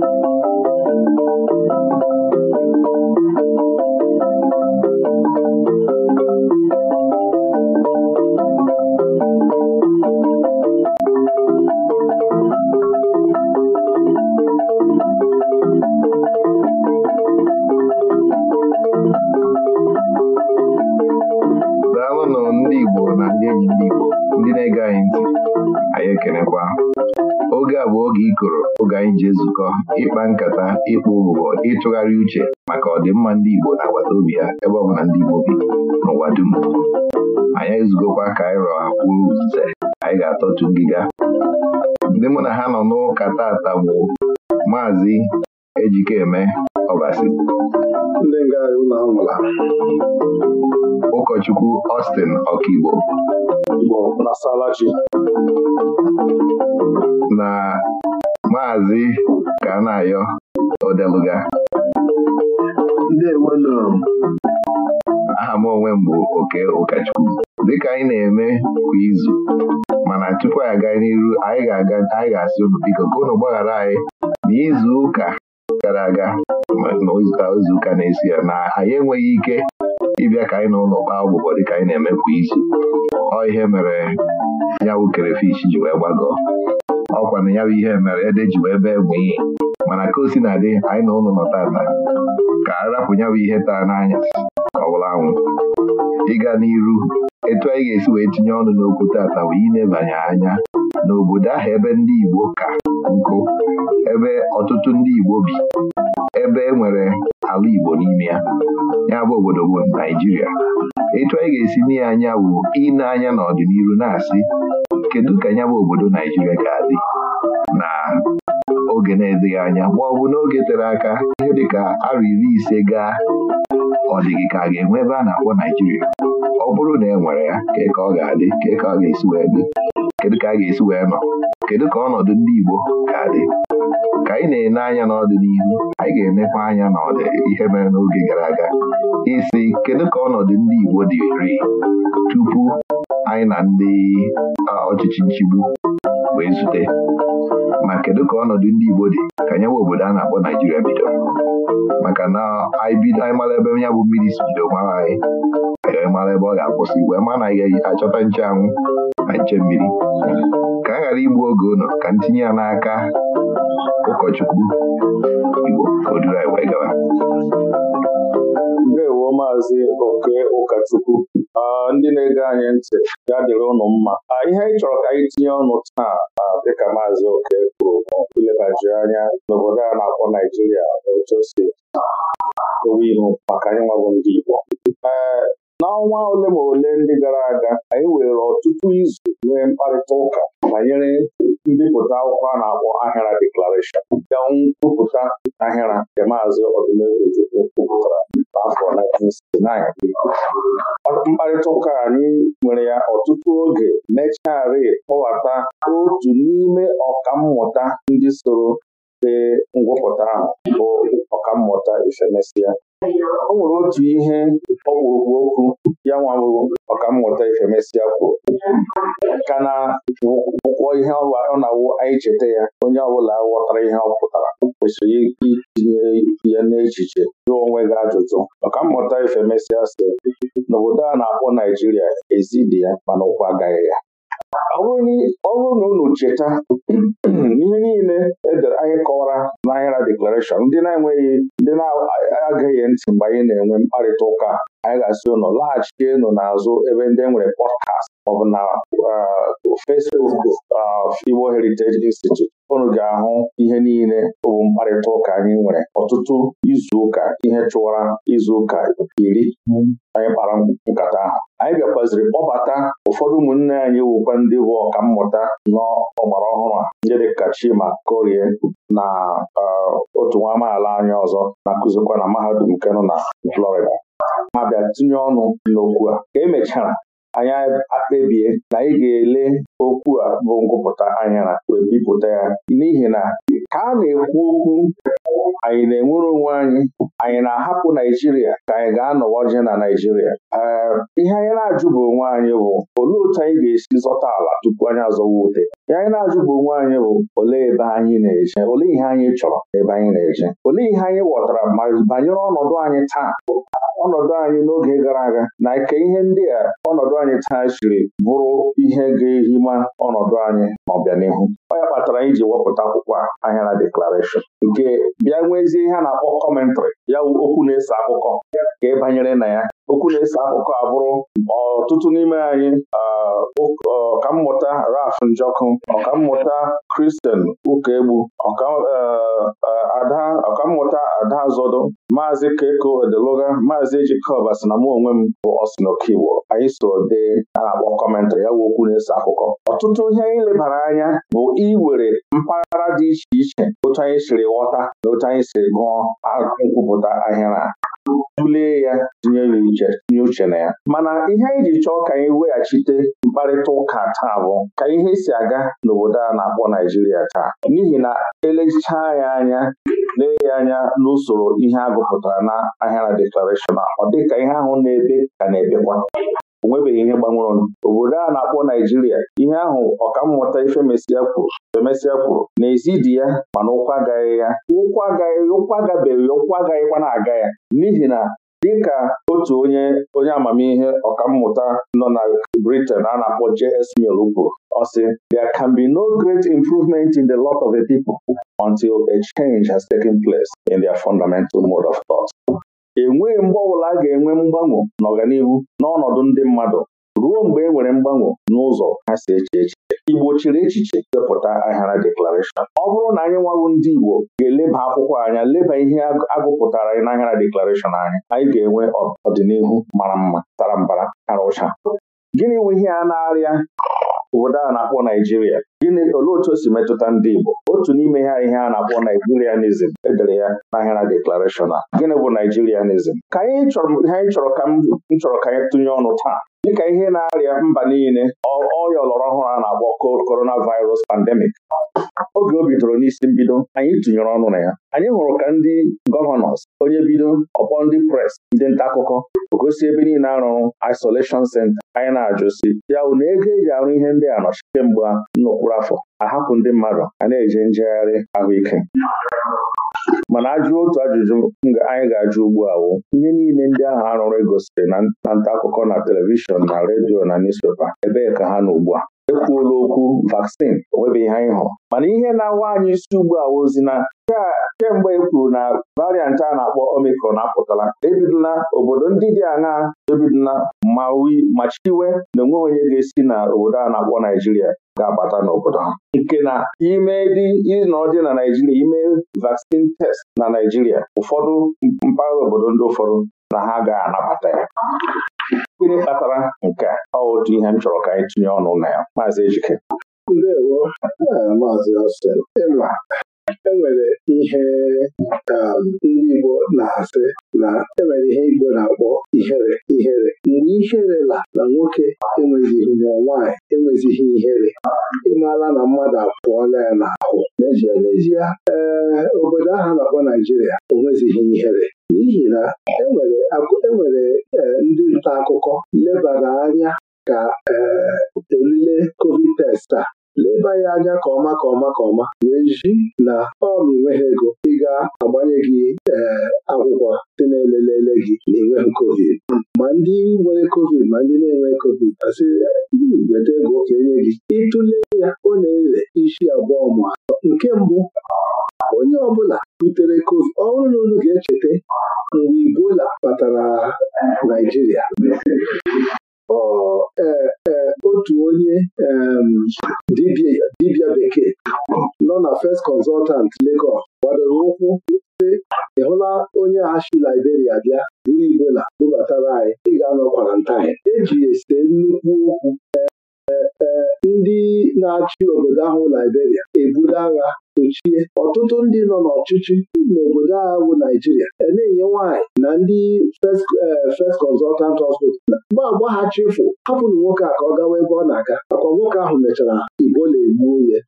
e a ji ezukọ ịkpa nkata ịkpụ ụgbọ ịtụgharị uche maka ọdịmma ndị Igbo na-agbata obi ha ebe ọ bụla ndị Igbo bi n'ụwa dum anyị ezugokwa ka anyị rọọ akwụrụ nze anyị ga-atọtu ngịga ndị mụ na ha nọ n'ụka tata bụ maazị Ejikeme Ọbasi ụkọchukwu Austin Ọkaigbo na maazị Kanayo Odeluga aha m onwe m bụ oke ụkọchukwu dịka anyị na-eme kwa izu mana tupu anyị aga n'iru anyị ga-asị aga unu biko ka unu gbaghara anyị n'izu ụka gara aga n'izuụka na-esi ya na anyị enweghị ike ịbịa ka anyị na ụlọ kpaa dị dịka anyị na-eme kwa izu ọ ihe mere ya bụ kerefish ji wee gbagọ ọkwa na ya bụ ihe mere ede ji wee bee bụ ihe mana ka o si na adị anyị na ụlọ nọ tata ka a rapụ ya bụ ihe taa n'anya ka ọ bụla anwụ ịga n'iru etu anyị ga-esi wee tinye ọnụ n'okwu tata bụ inebanye anya n'obodo ahụ ebe ndị Igbo ka nkụ ebe ọtụtụ ndị Igbo bi ebe e nwere ala Igbo n'ime ya ya bụ obodo bụ Naijiria etu anyị ga-esi n'ihe anya bụ ịna anya n'ọdịnihu na-asị kedu ka ya bụ obodo Naijiria ga-adị na oge na-edịghị anya ma ọ bụ n'oge tere aka ihe dịka arọ iri ise gaa ọ dịghị ka a ga-enwe ebe a na-akpọ Naijiria ọ bụrụ na e nwere ya kee ka ọ ga-adị kee ka ọ ga-esi wee dị kedu ka a ga-esi wee nọ kedu ka ọnọdụ ndị Igbo ga-adị ka anyị na-ene anya n'ọdịnihu anyị ga emekwa anya n'ọdị ihe mere n'oge gara aga isi kedu ka ọnọdụ ndị Igbo dịrị tupu anyị na ndị ọchịchị nchigbu wee zute ma kedu ka ọnọdụ ndị Igbo dị ka nyewe obodo a na-akpọ Naijiria bido maka na anyị mara ebe ya bụ mmiri si bido mara anyị anyị mara ebe ọ ga-akwụsị wee ma anaghị achọta achọta anwụ na nche mmiri ka a ghara igbu oge ụlọ ka ntinye ya n'aka ụkọchukwu Igbo o duru anyị wee gawa bụ maazị oke ụkọchukwu ndị na-ege anyị ntị ya dịrị ụnụ mma ihe anyị chọrọ ka anyị tinye ọnụ taa dịka maazị oke kwuru ilebaji anya n'obodo a na-akpọ Naijiria otu o si ihu maka anyị nwabụ ndị Igbo e, n'ọnwa ole ma ole ndị gara aga anyị were ọtụtụ izu nwee mkparịta ụka banyere mbipụta akwụkwọ a na-akpọ ahịra deklarashọn ga nkwupụta ahịra nke maazị ọdụmegwu Chukwu kwupụtara afọ 1969 mkparịta ụka anyị nwere ya ọtụtụ oge mechari kpọwata otu n'ime ọkammụta ndị soro ee ngwụpụta ahụ bụ ọkammụta Ifemesia o nwere otu ihe ọkpụrụkpụ okwu ya nwa ọkammụta Ifemesia kwuru ka na ụkwọ ihe ọ na-awụ anyị cheta ya onye ọbụla ghọtara ihe ọ pụtara kwesịrị itinye ya n'echiche jụọ onwe gị ajụjụ maka mmụta ife mesịa n'obodo a na-akpọ Naijiria ezidi ya mana ụkwụ agaghị ya ọ bụrụ na unu cheta n'ihe niile edere anyị kọwara n'ahịra deklarashọn ndị na-enweghị ndị na-agaghị ntị mgbe anyị na-enwe mkparịta ụka anyị ga-asị laghachi laghachienụ n'azụ ebe ndị nwere pọdkast maọbụ na uh, Facebook uh, Igbo Heritage Institute unu ga-ahụ ihe niile bụ mkparịta ụka anyị nwere ọtụtụ izuụka ihe chụwara izu ụka iri anyị kpara nkata ahụ anyị bịakwaziri kpọbata ụfọdụ ụmụnne anyị wukwa ndị bụ ọkammụta n'ọgbara ọhụrụ a ndị dịka Chima Korie na e, otu nwa amaala anyị ọzọ na-akụzikwa na mahadum nke na Florida ma bịa tinye ọnụ n'okwu a ka emechara anyị akpebie na ị ga-ele okwu a bụ ngụpụta anyara wee bipụta ya n'ihi na ka a na-ekwu okwu anyị na-enwere onwe anyị anyị na-ahapụ Naijiria ka anyị ga-anọwa je na Naijiria ihe anyị na-ajụ bụ onwe anyị bụ olee otu anyị ga-esi zọta ala tupu anyị azọwa ute ihe anyị na-ajụ bụ onwe anyị bụ olee ebe anyị na-eje olee ihe anyị chọrọ ebe anyị na-eje olee ihe anyị ghọtara ma banyere ọnọdụ anyị taa ọnọdụ anyị n'oge gara aga na nke ihe ndị a ọnọdụ anyị taa siri bụrụ ihe ga-ehima ọnọdụ anyị n'ọbịanihu ọ ya kpatara anyị ji wepụta akwụkwọ na deklarashọn nke bịa ya nwezie ihe a na-akpọ kọmentrị ya okwu na-eso akụkọ ka ị banyere na ya okwu na-ese akụkọ abụrụ ọtụtụ n'ime anyị ọkammụta Raf Njọkụ ọkammụta Kristen Ukegbu ọkammụta e, e, Ada Zodo maazị Keko Odeloga maazị Ejikọba na mụ onwe m bụ Osinokiwo anyị so dee a na-akpọ kọmentarị ya bụ okwu na-ese akụkọ ọtụtụ ihe anyị lebara anya bụ iwere mpaghara dị iche iche otu anyị siri ghọta na otu anyị siri gụọ nkwupụta ahịara tụlee ya uche tinye uche na ya mana ihe anyị ji chọọ ka anyị weghachite mkparịta ụka taa bụ ka ihe si aga n'obodo a na-akpọ Naijiria taa n'ihi na elechaa ya anya lee ya anya n'usoro ihe a gụpụtara na ahịara deklarashọn ọ dịka ihe ahụ na-ebe ka na-ebekwa onwebeghị ihe gbanwụrụnụ obodo a na-akpọ Naijiria ihe ahụ ọkammụta Ifemesịa kwuru femesia kwuru n'ezi dị ya mana ụkwụ agaghị ya ụkwụ agaghị ụkwụ agabeghị ya agaghịkwa na-aga ya n'ihi na dịka otu onye onye amamihe ọkammụta nọ na Britain a na-akpọ J.S. Mill kwuru ọ sị there can be no great improvement in the lot of a people until a change has taken place in their fundamental mode of thought enweghị mgbe ọbụla a ga-enwe mgbanwo n'ọganihu n'ọnọdụ ndị mmadụ ruo mgbe e nwere mgbanwo n'ụzọ ha si eche echiche Igbo chịrị echiche depụta ahịara deklarashọn ọ bụrụ na anyị nwawu ndị Igbo ga-eleba akwụkwọ anya leba ihe agụpụtara anyị n'ahịara deklarashọn anyị anyị ga-enwe ọdịnihu mara mma tara mbara tara ụcha gịnị nwe ihe a na-arịa obodo a na-akpọ Naijiria gịnị olee otu o si metụta ndị Igbo otu n'ime ha ihe a na-akpọ Naijirianism edere ya n'ahịara deklarashọn a gịnị bụ Naijirianism ka anyị chọrọ ka m chọrọ ka anyị tụnye ọnụ taa dịka ihe na-arịa mba niile ọrịa ọlọrọ ọhụrụ a na-akpọ korona virus pandemic oge o bidoro n'isi mbido anyị tụnyere ọnụ na ya anyị hụrụ ka ndị gọvanọs onye bido ọkpọ ndị pres ndị nta akụkọ gosi ebe niile arụrụ isolation Senta anyị na-ajụsi ya bụ na ego eji arụ ihe ndị a nọchi kemgbe nnukwu afọ ahapụ ndị mmadụ a na-eje njegharị ahụike mana ajụ otu ajụjụ anyị ga-ajụ ugbu a wụ ihe niile ndị ahụ arụrụ egosiri na nta akụkọ na telivishọn na redio na newspepa ebee ka ha nọ ugbu a ekwuola okwu vaksin onwebeghị ihe anyị hụ." mana ihe na-awa anyị isi ugbu a ozi na kemgbe e kwuru na variant a na-akpọ Omicron apụtala ebidola obodo ndị dị aṅaa ebidola ma chiwe na onweghị onye ga-esi na obodo a na-akpọ Naijiria ga agbata n'obodo ha nke na ime dị ịnọ na Naijiria ime vaccine test na Naijiria ụfọdụ mpaghara obodo ndị ụfọdụ na ha ga-anabata ya gịnị kpatara nke ọ otu ihe m chọrọ ka anyị tinye ọnụ na ya maazị Ejike maazị enwere ihe um, ndị Igbo na-asị na enwere ihe Igbo na-akpọ ihere ihere mgbe ihere la na nwoke enwezighị na nwaanyị enwezighị ihere ịmala na mmadụ apụọla ya n'ahụ n'ezie n'ezie ee um, obodo ahụ na-akpọ Naijiria onwezighị ihere n'ihi na enwere e um, ndị nta akụkọ lebara anya ka ee olile covid test leba ya anya ka ọma ka ọma ka ọma wee ji na ọ ma ego ị ga-agbanye gị eh, akwụkwọ dị na-elelele gị na enweghị covid ma ndị nwere covid ma ndị na-enwe covid asị weta ego ka enye gị ịtụle ya ọ na-ele isi abụọ ma atọ nke mbụ onye ọbụla butere covid ọ na ga-echeta mgbe Ebola batara Naijiria ọ ee eh, otu onye dibia bekee nọ na First Consultant Lagos gbadoro ụkwụ sị ị hụla onye a si Liberia bịa buru Igbola bubatara anyị ị ga-anọ kwarantain eji ese nnukwu okwu ndị na-achị obodo ahụ Liberia ebuli agha sochie ọtụtụ ndị nọ n'ọchịchị n'obodo agha bụ Naijiria e na-enye nwaanyị na ndị eh, First Consultant Hospital mgbe agba ha chefu hapụrụ nwoke a ka ọ gawa ebe ọ na-aga akwa nwoke ahụ mechara Igbo na-egbuo onye.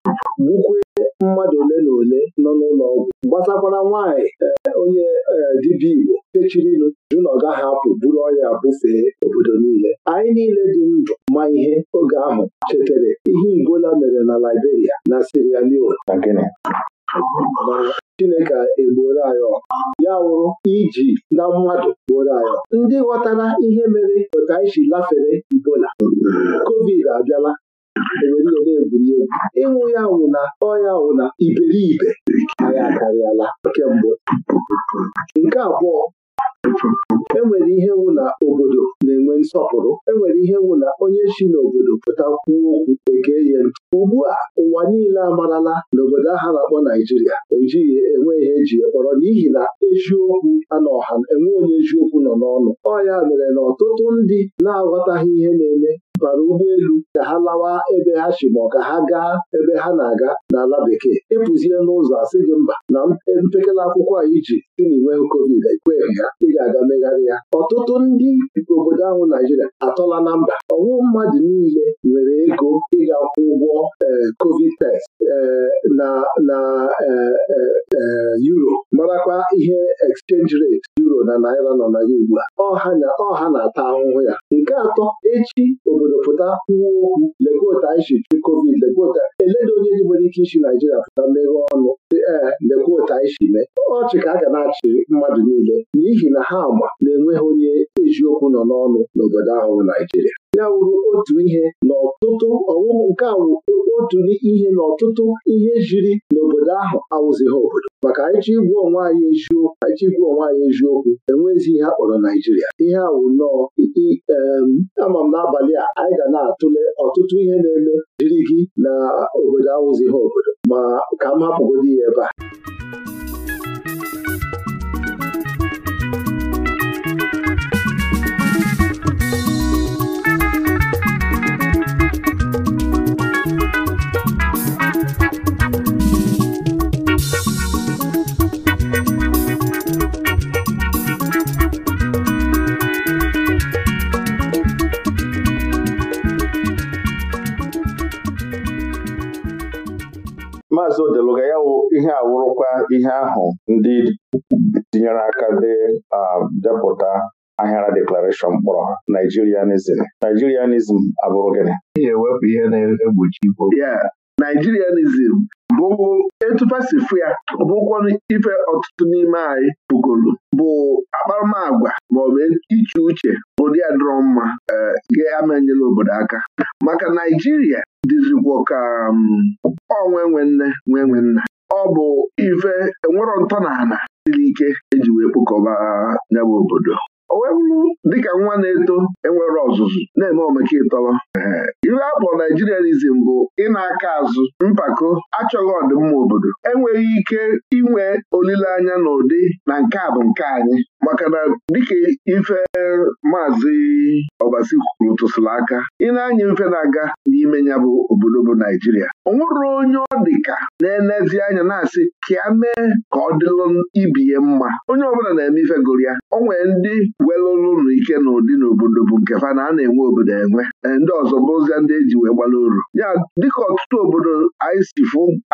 gbukwee mmadụ ole na ole nọ n'ụlọ ọgwụ gbasakwara nwaanyị eh, onye eh, dibịa Igbo fechiri ilu jụ na ọ gaghị apụ buru ọrịa bufee obodo niile anyị niile dị ndụ ma ihe oge ahụ chetere ihe Igbola mere na Liberia na Sierra Leone Chineke egbuola anyị ọkụ ya wụrụ iji na mmadụ gbuoro anyị ndị ghọtara ihe mere otu anyị si lafere ibola. kovid abịala obodo egwuregwu ịnwụ ya wụ na ọya wụ na iberibe anyị akarịala mbụ. nke abụọ enwere ihe wụ na obodo na-enwe nsọpụrụ enwere ihe wụ na onye si n'obodo pụta kwuo okwu ege ya ntị ugbu a ụwa niile amarala n'obodo aha na-akpọ Naijiria ejighị enwe ihe eji kpọrọ n'ihi na eziokwu anọ enwe onye eziokwu nọ n'ọnụ ọya mere na ọtụtụ ndị na-aghọtaghị ihe na-eme bara ụgbọelu ka ha lawa ebe ha si ma ọ ka ha gaa ebe ha na-aga n'ala bekee ịpụzie e n'ụzọ asị gị mba na e, mpekele akwụkwọ a iji si na inweghị covid ekweghị ya ị ga-aga megharị ya ọtụtụ ndị obodo ahụ Naijiria atọla na mba ọnwụ mmadụ niile nwere ego ịga kwụ ụgwọ e, covid test na na Euro marakwa ihe exchange rate na naira nọ na ya ugbu a ọha ọha na-ata ahụhụ ya nke atọ echi obodo pụta kwuo okwu lekota isi covid lekota eledo onye dị nwere ike isi naijiria pụta meghe ọnụ dị ee mee ọchị ka a ga na-achị mmadụ niile n'ihi na ha ma na-enweghị onye eziokwu nọ n'ọnụ n'obodo ahụ naijiria ya wuru otu ihe n'ọtụtụ ọwụwụ nke a wụ otu ihe n'ọtụtụ ihe jiri n'obodo ahụ awụzighị obodo maka anyị igwu onwe anyị eziokwu anyị igwu onwe anyị eziokwu enwezi ihe akpọrọ kpọrọ Naijiria ihe awụ nọọ ama m n'abalị a anyị ga na-atụle ọtụtụ ihe na-eme jiri gị na obodo awụzighị obodo ma ka m hapụgodi ya ebe a maazị odeluga ya wụ ihe awụrụkwa ihe ahụ ndị tinyere aka dị depụta ahịara deklarashọn mkpọrọ Naijirianism Naijirianism abụrụ gịnị? ewepụ ihe na-egbochi Naijirianism bụ etufasifu ya bụkwanụ ife ọtụtụ n'ime anyị bugolu bụ akparamagwa maọbụ iche uche ụdị adịrọ mma ga-amanyela eh, obodo aka maka Naijiria Dizikwuo ka ọ um, nwe nne nwe nwe ọ bụ ife enwero ana siri ike eji wee kpokọba n'ebe obodo o wee dịka nwa na-eto enwere ọzụzụ na-eme omeke ịtọrọ iwe a naijirianizm bụ ịna aka azụ mpako achọghị ọdịmma obodo enweghị ike inwe olileanya n'ụdị na nke a bụ nke anyị maka na dịka ife maazị ọbasi kwuru tụsịrị aka ị anya mfe na-aga n'ime ya bụ obodo bụ naijiria o onye ọ dịka na-enezi anya na-asị ka ya mee ka ọ dịlụ ibi ya mma onye ọbụla na-eme ife gụrụ ya o ndị welụrụ ụnụ ike n'ụdị n'obodo bụ nkefa na a na-enwe obodo enwe eh, ndị ọzọ bụrụzia ndị eji wee gbala uru ya dịka ọtụtụ obodo anyị si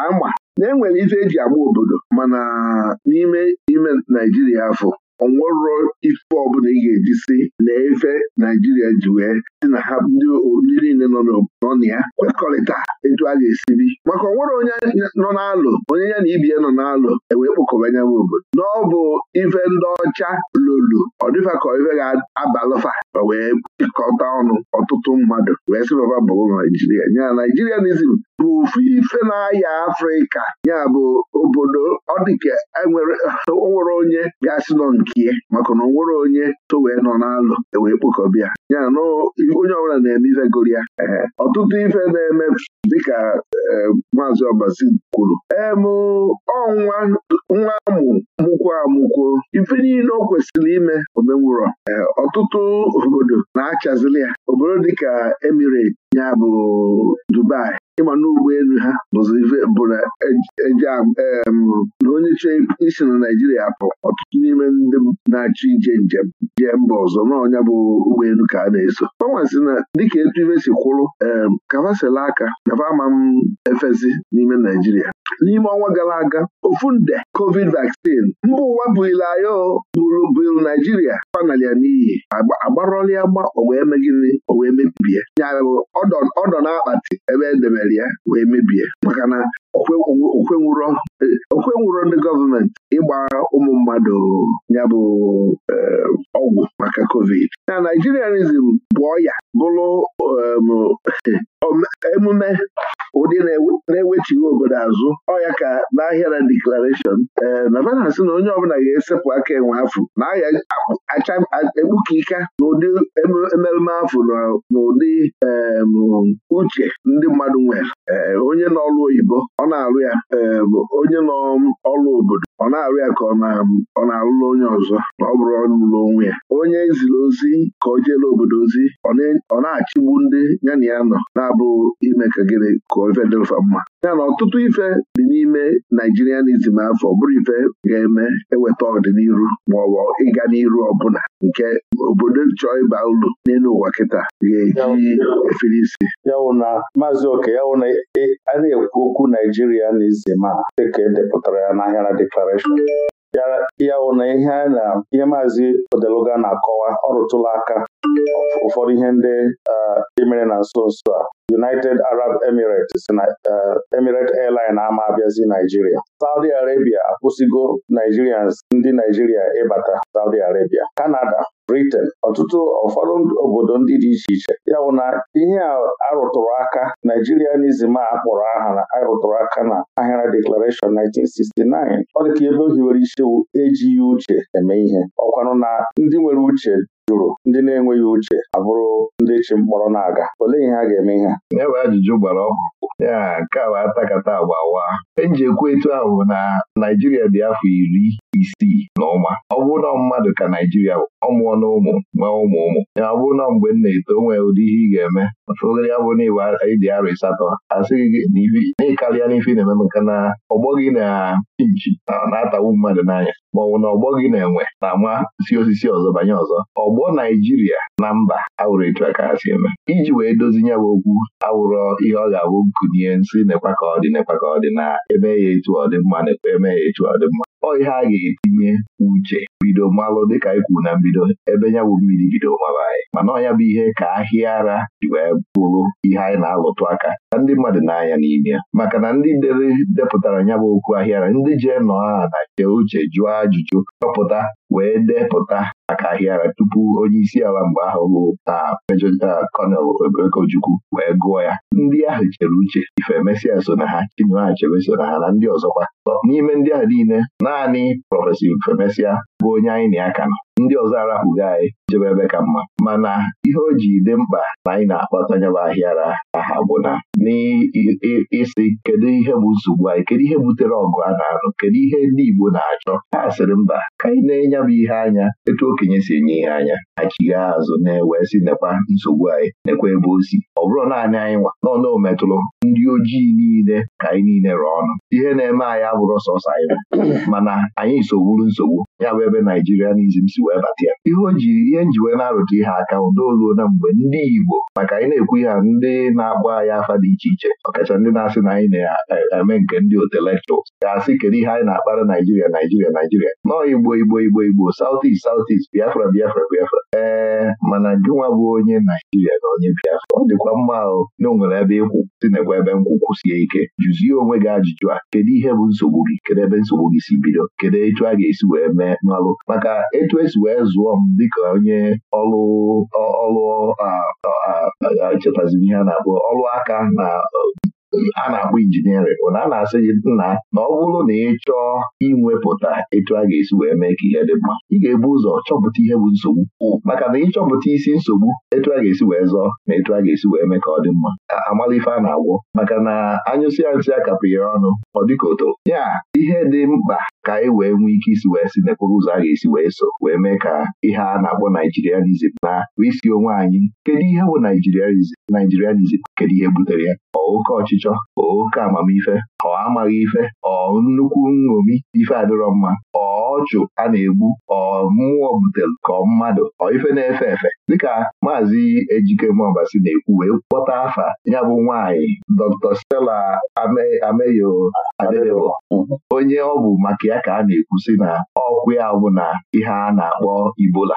ama na-enwere ife eji agba obodo mana n'ime ime Naijiria afọ onwero ife ọbụla ị ga-eji si na efe naijiria ji wee si na ha ndị niile nọ na ya kwekọrịta etu a ga-esi bi maka onwere onye nọ n'alụ onye ya na ibie nọ n'alụ ewee kpọkọba anya obodo ọ bụ ife ndị ọcha lolo ọ dịfa ka ife ga-abalụfa o wee jikọta ọnụ ọtụtụ mmadụ wee sị baba bụrụ naijiria nya naijirianizm bụ ofu ife na-aya afrịka ya bụ obodo ọ dịka onwere e onye ga-asị nọ nke ya maka na onwere onye so wee nọ n'alụ ewee kpokọbịa ya na onye ọbụla na-eme ife goro ya ọtụtụ ife na-eme dịka eh, maazị ọbazi kwuru mụ ọ nwa amụ mụkwo amụkwo ife niile o kwesịrị ime omenwụrọ eh, ọtụtụ obodo na-achazili ya obodo dịka emirate ya bụ Dubai ịgba n'ụgbọelu ha bụ na e, e onye isi na Naijiria bụ ọtụtụ n'ime ndị na-achọ ije njem jee mba ọzọ n'ọnya bụ ụgbọelu ka a na-eso ọnwasị na dịka etu ife si kwụrụ em kafasela aka nafa ama m efezi n'ime Naijiria n'ime ọnwa gara aga ofu nde covid vaccine mba ụwa burilayo bụrụ buru naijiria panalya n'iyi agbarọla ya gba o wee megide o wee mebibie nyarụ ọdọ na-akpati ebe edebere ya wee mebie maka na okwe nwụrọ ndị gọọmenti ịgba ụmụ mmadụ ya bụ eh, ọgwụ maka covid na naijirianism bụ ọya bụrụ um, emume ụdị na-ewechighị obodo azụ ọya ka n'ahịa na deklarashọn ee um, navana si na onye ọbụla ga-esepụ aka enwe afụ na ahịa ekpuka ika n'ụdị emereme afụ n'ụdị um, uche ndị mmadụ nwere onye nọlụ oyibo ọ na-arụ ya onye n'ọrụ obodo ọ na-arụ ya ka ọ na-arụla onye ọzọ na ọ bụrụ ọrụ n'onwe ya onye ziri ozi ka o jeela obodo ozi ọ ọ na-achịgbu ndị ya na ya nọ na-abụghị ime ka gịnị ka ife mma ya na ọtụtụ ife dị n'ime Naijirianizm afọ bụrụ ife ga-eme eweta ọdịnihu ma ọ bụ ịga n'iru ọbụla nke obodo chọọ ịba ụlọ n'elu ụwa kịta ga-eji efere isi yawụ maazị oke yawụ na e, a na-ekwu okwu Naijirianizm a dịka edepụtara ya n'ahịara deklarashọn ya wụ na ihe na ihe maazị Odeluga na-akọwa ọrụtụla aka ụfọdụ ihe ndị emere na nso nso a United Arab Emirates na Emirate Airline ama abịazi Naijiria Saudi Arabia akwụsịgo Nigerians ndị Naijiria ịbata Saudi Arabia Canada Britain ọtụtụ ụfọdụ obodo ndị dị iche iche ya bụ na ihe arụtụrụ aka Nigerianism a kpọrọ aha arụtụrụ aka na Ahịra Declaration 1969 ọ dị ka ebe o hiwere isi ejighị uche eme ihe ọkwanụ na ndị nwere uche jụrụ ndị na-enweghị uche abụrụ ndị chi mkpọrọ na-aga olee ihe a ga-eme ihe ebe ajụjụ gbara ọkụ ya nke a bụ atakata agbawa e ekwu etu ahụ na Naijiria dị afọ iri isi na ụma ọ na mmadụ ka Naijiria ọmụọ na ụmụ nwee ụmụ ụmụ ya bụrụ na mgbe m na-eto nwee ụdị ihe ị ga-eme ofegara ya bụ na ịwa ịdị na ịsatọ asịghị gị na ikarịa n'ife na-eme maka na ọgbọ gị na chinchi na-atawu mmadụ n'anya ma ọ bụ na ọgbọ gị na-enwe na-ama si osisi ọzọ banye ọzọ ọgbọ Naijiria na mba awụrụ etu aka ha si eme iji wee dozi ya bụ okwu awụrọ ihe ọ ga-abụ gụnye nsị nekwa ka ọ dị nekwa ka ọ dị na eme ya etu ọ dị mma nekwa eme ya etu ọ dị mma ọ ihe a ga-etinye uche bido mmalụ dịka ikwu e na mbido ebe nyabụ bụ mmiri bido mara anyị mana ọnya bụ ihe ka ahịa ara wee bụrụ ihe anyị na-alụtụ aka Na ndị mmadụ n'anya anya n'ime ya maka na ndị dere depụtara ya bụ okwu ahịara ndị jee nọ ha na jee uche jụọ ajụjụ chọpụta wee depụta maka ahịara tupu onye isi ala mgbe ahụ bụ na Major General Colonel wee gụọ ya ndị ahụ chere uche ife so na ha Chinua so na ha na ndị ọzọkwa n'ime ndị ahụ niile naanị prọfesi ifemesịa bụ onye anyị na aka nọ ndị ọzọ arapụgo anyị jebe ebe ka mma mana ihe o ji dị mkpa na anyị na-akpata nyaba ahịara aha bụ na n'ịsị kedu ihe bụ nsogbu anyị kedu ihe butere ọgụ a na-anụ kedu ihe ndị Igbo na-achọ ha sịrị mba ka anyị na-enye ya bụ ihe anya etu okenye si enye ihe anya achigha azụ na-ewe si nekwa nsogbu anyị nekwa ebe o si ọ bụrụ naanị anyị nwa n'ọnụ ometụrụ ndị ojii niile ka anyị niile rụọ ọnụ ihe na-eme anyị abụrụ sọsọ anyị mana anyị sogburu nsogbu ya bụ ebe m si wee batịa. ihe o ji ihe nji wee na-arụta ihe aka ụdaoluo na mgbe ndị Igbo maka anyị na-ekwu ihe ndị na-agba anyị afa dị iche iche ọkacha ndị na-asị na anyị na-eme nke ndị otelektuals ga-asị kedu ihe anyị na-akpara Naijiria Naijiria Naijiria nọọ Igbo Igbo Igbo igbo southeast southeast biafra biafra biafra ee mana gịnwa bụ onye naijiria na onye biafra ọ dịkwa mma ahụ na o nwere ebe ịkwụ si nakwa ebe nkwụkwụ sie ike jụzie onwe gị ajụjụ a kedu ihe bụ nsogbu gị kedu ebe nsogbu gị si bido kedu etu a ga-esi wee mee n'ọlụ maka etu esi wee zụọ m dịka onye ọlụ ọlụ chetazi ihe a na-akpọ ọlụ aka na a na-akpọ injiniarịn bụ na a na-asị gị nna na ọ bụrụ na ị chọọ inwepụta etu a ga-esi wee mee ka ihe dị mma ị ga-ebu ụzọ chọpụta ihe bụ nsogbu maka na ịchọpụta isi nsogbu etu a ga-esi wee zọọ na etu a ga-esi wee mee ka ọ dị mma amala ife a na-agwọ maka na ya nsị a ọnụ ọ dịka oto ya ihe dị mkpa ka anyị e wee nwee ike isi wee si n'ekporo ụzọ a ga-esi wee so wee mee ka ihe a na-akpọ naijirianizm na bụ isi onwe anyị kedu ihe bụ naijirianizm naijirianizm kedu ihe butere ya ọ oke ọchịchọ ọ oke amamife ọ amaghị ife ọ nnukwu nṅomi ife adịrọ mma ọ ọchụ a na-egbu ọ mmụọ butere ka ọ mmadụ ọ ife na-efe efe dịka maazị Ejike si na-ekwu wee kpọta afa ya bụ nwaanyị Dr. Stella Ameyo Adebebo onye ọ bụ maka ya ka a na-ekwu si na ọkwụ ya bụ na ihe a na-akpọ Ibola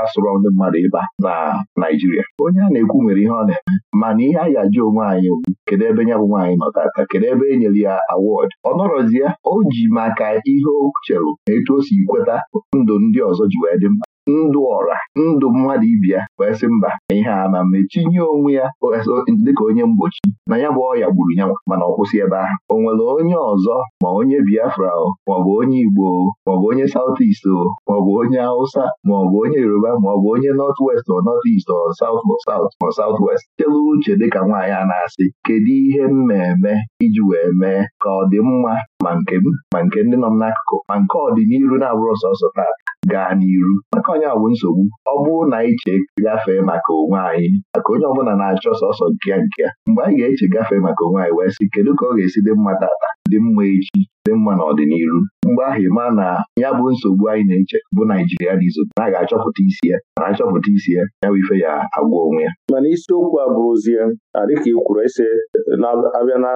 asụrọ ndị mmadụ ịba na Naijiria onye a na-ekwu nwere ihe ọ na-eme mana ihe anyị ajụ onwe anyị kedu ebe nya bụ nwaanyị nọ tata kedu ebe e nyere ya awọdụ ọ nọrọzi ya o ji maka ihe o chere na etu o si kweta ndụ ndị ọzọ ji wee dị mma ndụ ọra ndụ mmadụ ibia wee sị mba na ihe a ma metinye onwe ya dịka onye mgbochi na ya bụ ọya gburu ya mana ọ kwụsị ebe ahụ o nwere onye ọzọ ma onye Biafra o maọbụ onye Igbo maọbụ onye saut est o maọbụ onye Hausa maọbụ onye Yoruba maọbụ onye North West o North East o South South ma South West chelu uche dịka nwaanyị a na-asị kedu ihe na-eme iji wee mee ka ọ dị mma ma nke m ma nke ndị nọ m n'akụkụ ma nke ọdịnihu na-abụrụ sọsọ taa gaa n'iru maka onye awụ nsogbu ọ bụrụ na anyị gafee maka onwe anyị maka onye ọbụla na-achọ sọsọ nke ya nke ya mgbe anyị ga-eche gafee maka onwe anyị wee sị kedu ka ọ ga-esi dị mma tata dị mma echi dị mma n'ọdịnihu? mgbe ahụ ịma na ya bụ nsogbu anyị na-eche bụ Naijiria dị na a ga-achọpụta isi ya na achọpụta isi ya ya bụ ife ya agwa onwe ya mana isiokwu a bụrụzie dịka ị kwuru ise na-abịa na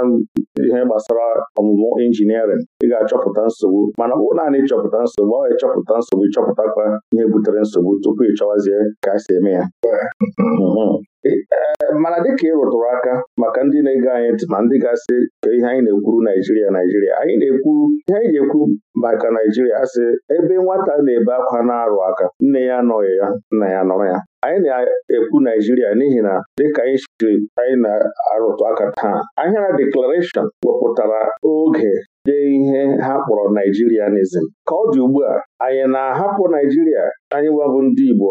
ihe gbasara ọmụmụ injiniarịn ị ga-achọpụta nsogbu mana ọ naanị ịchọpụta nsogbu ọ ịchọpụta nsogbu ịchọpụtakwa ihe butere nsogbu tupu ị ka a si eme ya hmm. Hmm. Eh, mana dịka ị rụtụrụ aka maka ndị na-ege anyị ntị ma ndị gasị ihe anyị na-ekwuru Naijiria Naijiria anyị na-ekwuru ihe anyị na-ekwu maka Naijiria asị ebe nwata na-ebe akwa na-arụ aka nne ya anọghị ya nna ya nọrọ ya anyị na-ekwu Naijiria n'ihi na dịka anyị anyị na-arụtụ aka taa ahịara deklarashọn wepụtara oge dee ihe ha kpọrọ Naijirianism ka ọ dị ugbu a anyị na-ahapụ Naijiria anyị nwebụ ndị Igbo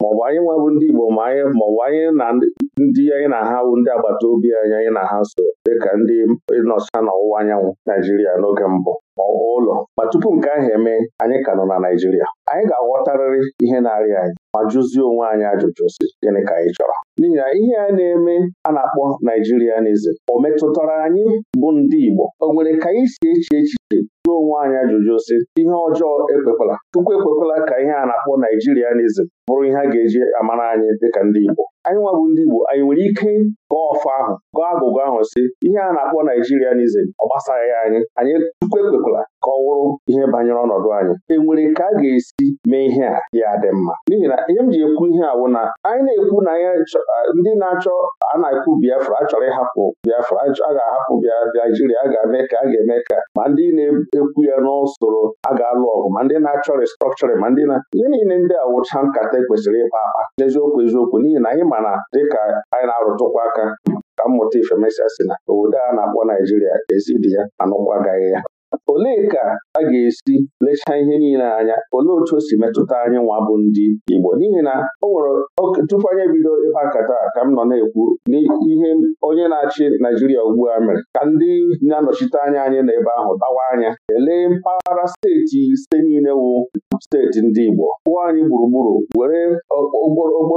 maọbụ anyị nwebụ ndị Igbo ma maọbụ anyị na ndị anyị na ha ndị agbata obi anyị anyị na ha so dịka ndị nọcha n'ọwụwa anyanwụ Naijiria n'oge mbụ ma ọ bụ ụlọ ma tupu nke ahụ eme anyị ka nọ na Naijiria anyị ga-aghọtarịrị ihe na-arịa anyị ma jụzie onwe anyị ajụjụ si gịnị ka anyị chọrọ n'ihi na ihe a na-eme a na-akpọ Naijirianism o metụtara anyị bụ ndị Igbo o nwere ka anyị si eche echi? jụọ onwe anyị ajụjụ si ihe ọjọọ ekwekwala Chukwu ekwekwala ka ihe a na-akpọ Naijirianism bụrụ ihe a ga-eji amara anyị dịka ndị Igbo anyị nwa bụ ndị Igbo anyị nwere ike gọọ ọfọ ahụ gụọ agụgụ ahụ si ihe a na-akpọ n'izem ọ gbasaghị anyị anyị tukwu ekwekwala ka ọ wụrụ ihe banyere ọnọdụ anyị enwere ka a ga-esi mee ihe a ya dị mma n'ihi na ihe m ji ekwu ihe awụ na anyị na-ekwu na ndị na-achọ a na-ekwu Biafra achọrọ ịhapụ Biafra a ga-ahapụ Naijiria a ga-eme ka a ga-eme ka ma ndị na-ekwu ya n'usoro a ga-alụ ọgụ ma ndị na-achọ restrọkchọrịn ma ndị na ihe niile ndị awụcha nkata e kwesịrị ịkpa akpa n'eziokwu eziokwu n'ihi na anyị mana dịka anyị na-arụtụkwa aka aka ka mmụta ifemesịa si na obodo a na-akpọ Naijiria ezidi ya anụkwagaghị ya olee ka a ga-esi lechaa ihe niile anya olee otu o si metụta anyị nwa bụ ndị Igbo n'ihi na o nwere tupu anyị ebido ịkpa nkata ka m nọ na-ekwu n'ihe onye na-achị Naijiria ugbu a mere ka ndị na-anọchite anya anyị n'ebe ahụ dawa anya elee mpaghara steeti ise niile wụ steeti ndị Igbo pụọ anyị gburugburu were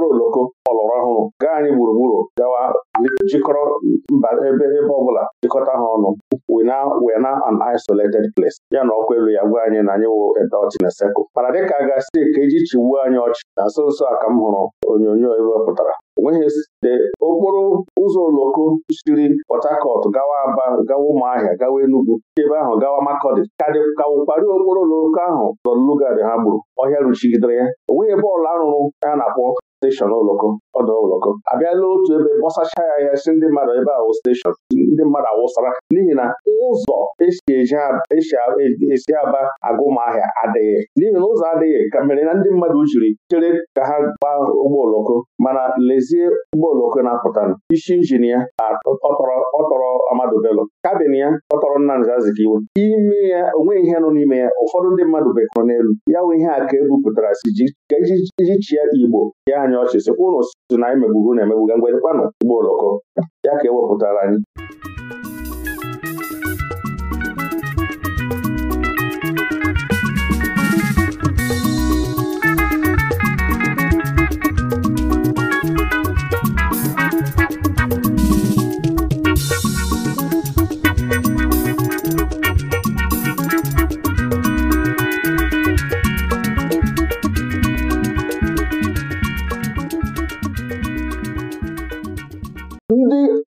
oloko ọlọrọ ọhụrụ gaa anyị gburugburu gawa jikọrọ mba ebe ebe ọbụla jikọta ha ọnụ we na we na an isolated place ya na ọkụ elu ya gwa anyị na anyị wụ edọchị na sekụl mana dịka a ga-asị ka eji chigbuo anyị ọchị na nso nso a ka m hụrụ onyonyo ebe pụtara onweghị site okporo ụzọ oloko siri Port Harcourt gawa Aba gawa Ụmụahịa gawa Enugu ebe ahụ gawa Makọdị ka wụkparị okporo oloko ahụ lọlugad ha gburu ọhịa ruchigidere ya onweghị ebe ọla arụrụ ya na-akpọ steshọn ụlọkọ ọdụ ụlọkọ abịala otu ebe gbọsacha ya ya si ndị mmadụ ebe a wụ steshọn ndị mmadụ awụsara n'ihi na ụzọ esi esi aba agụmahịa adịghị n'ihi na ụzọ adịghị ka mere na ndị mmadụ jiri chere ka ha gbaa ụgbọ oloko mana lezie ụgbọ oloko na-apụtanụ isi injin ya ọtọrọ Amadu Bello kabin ya ọtọrọ Nnamdi Azikiwe ime ya onweghị ihe nọ n'ime ya ụfọdụ ndị mmadụ bekọrọ n'elu ya nwe ihe a ka ebupụtara si iji e e chia Igbo ya anya ọchị sikwa ụnụ si na anyị megburu na emegbu ngwedekwanụ ụgbọ oloko ya ka ewepụtara anyị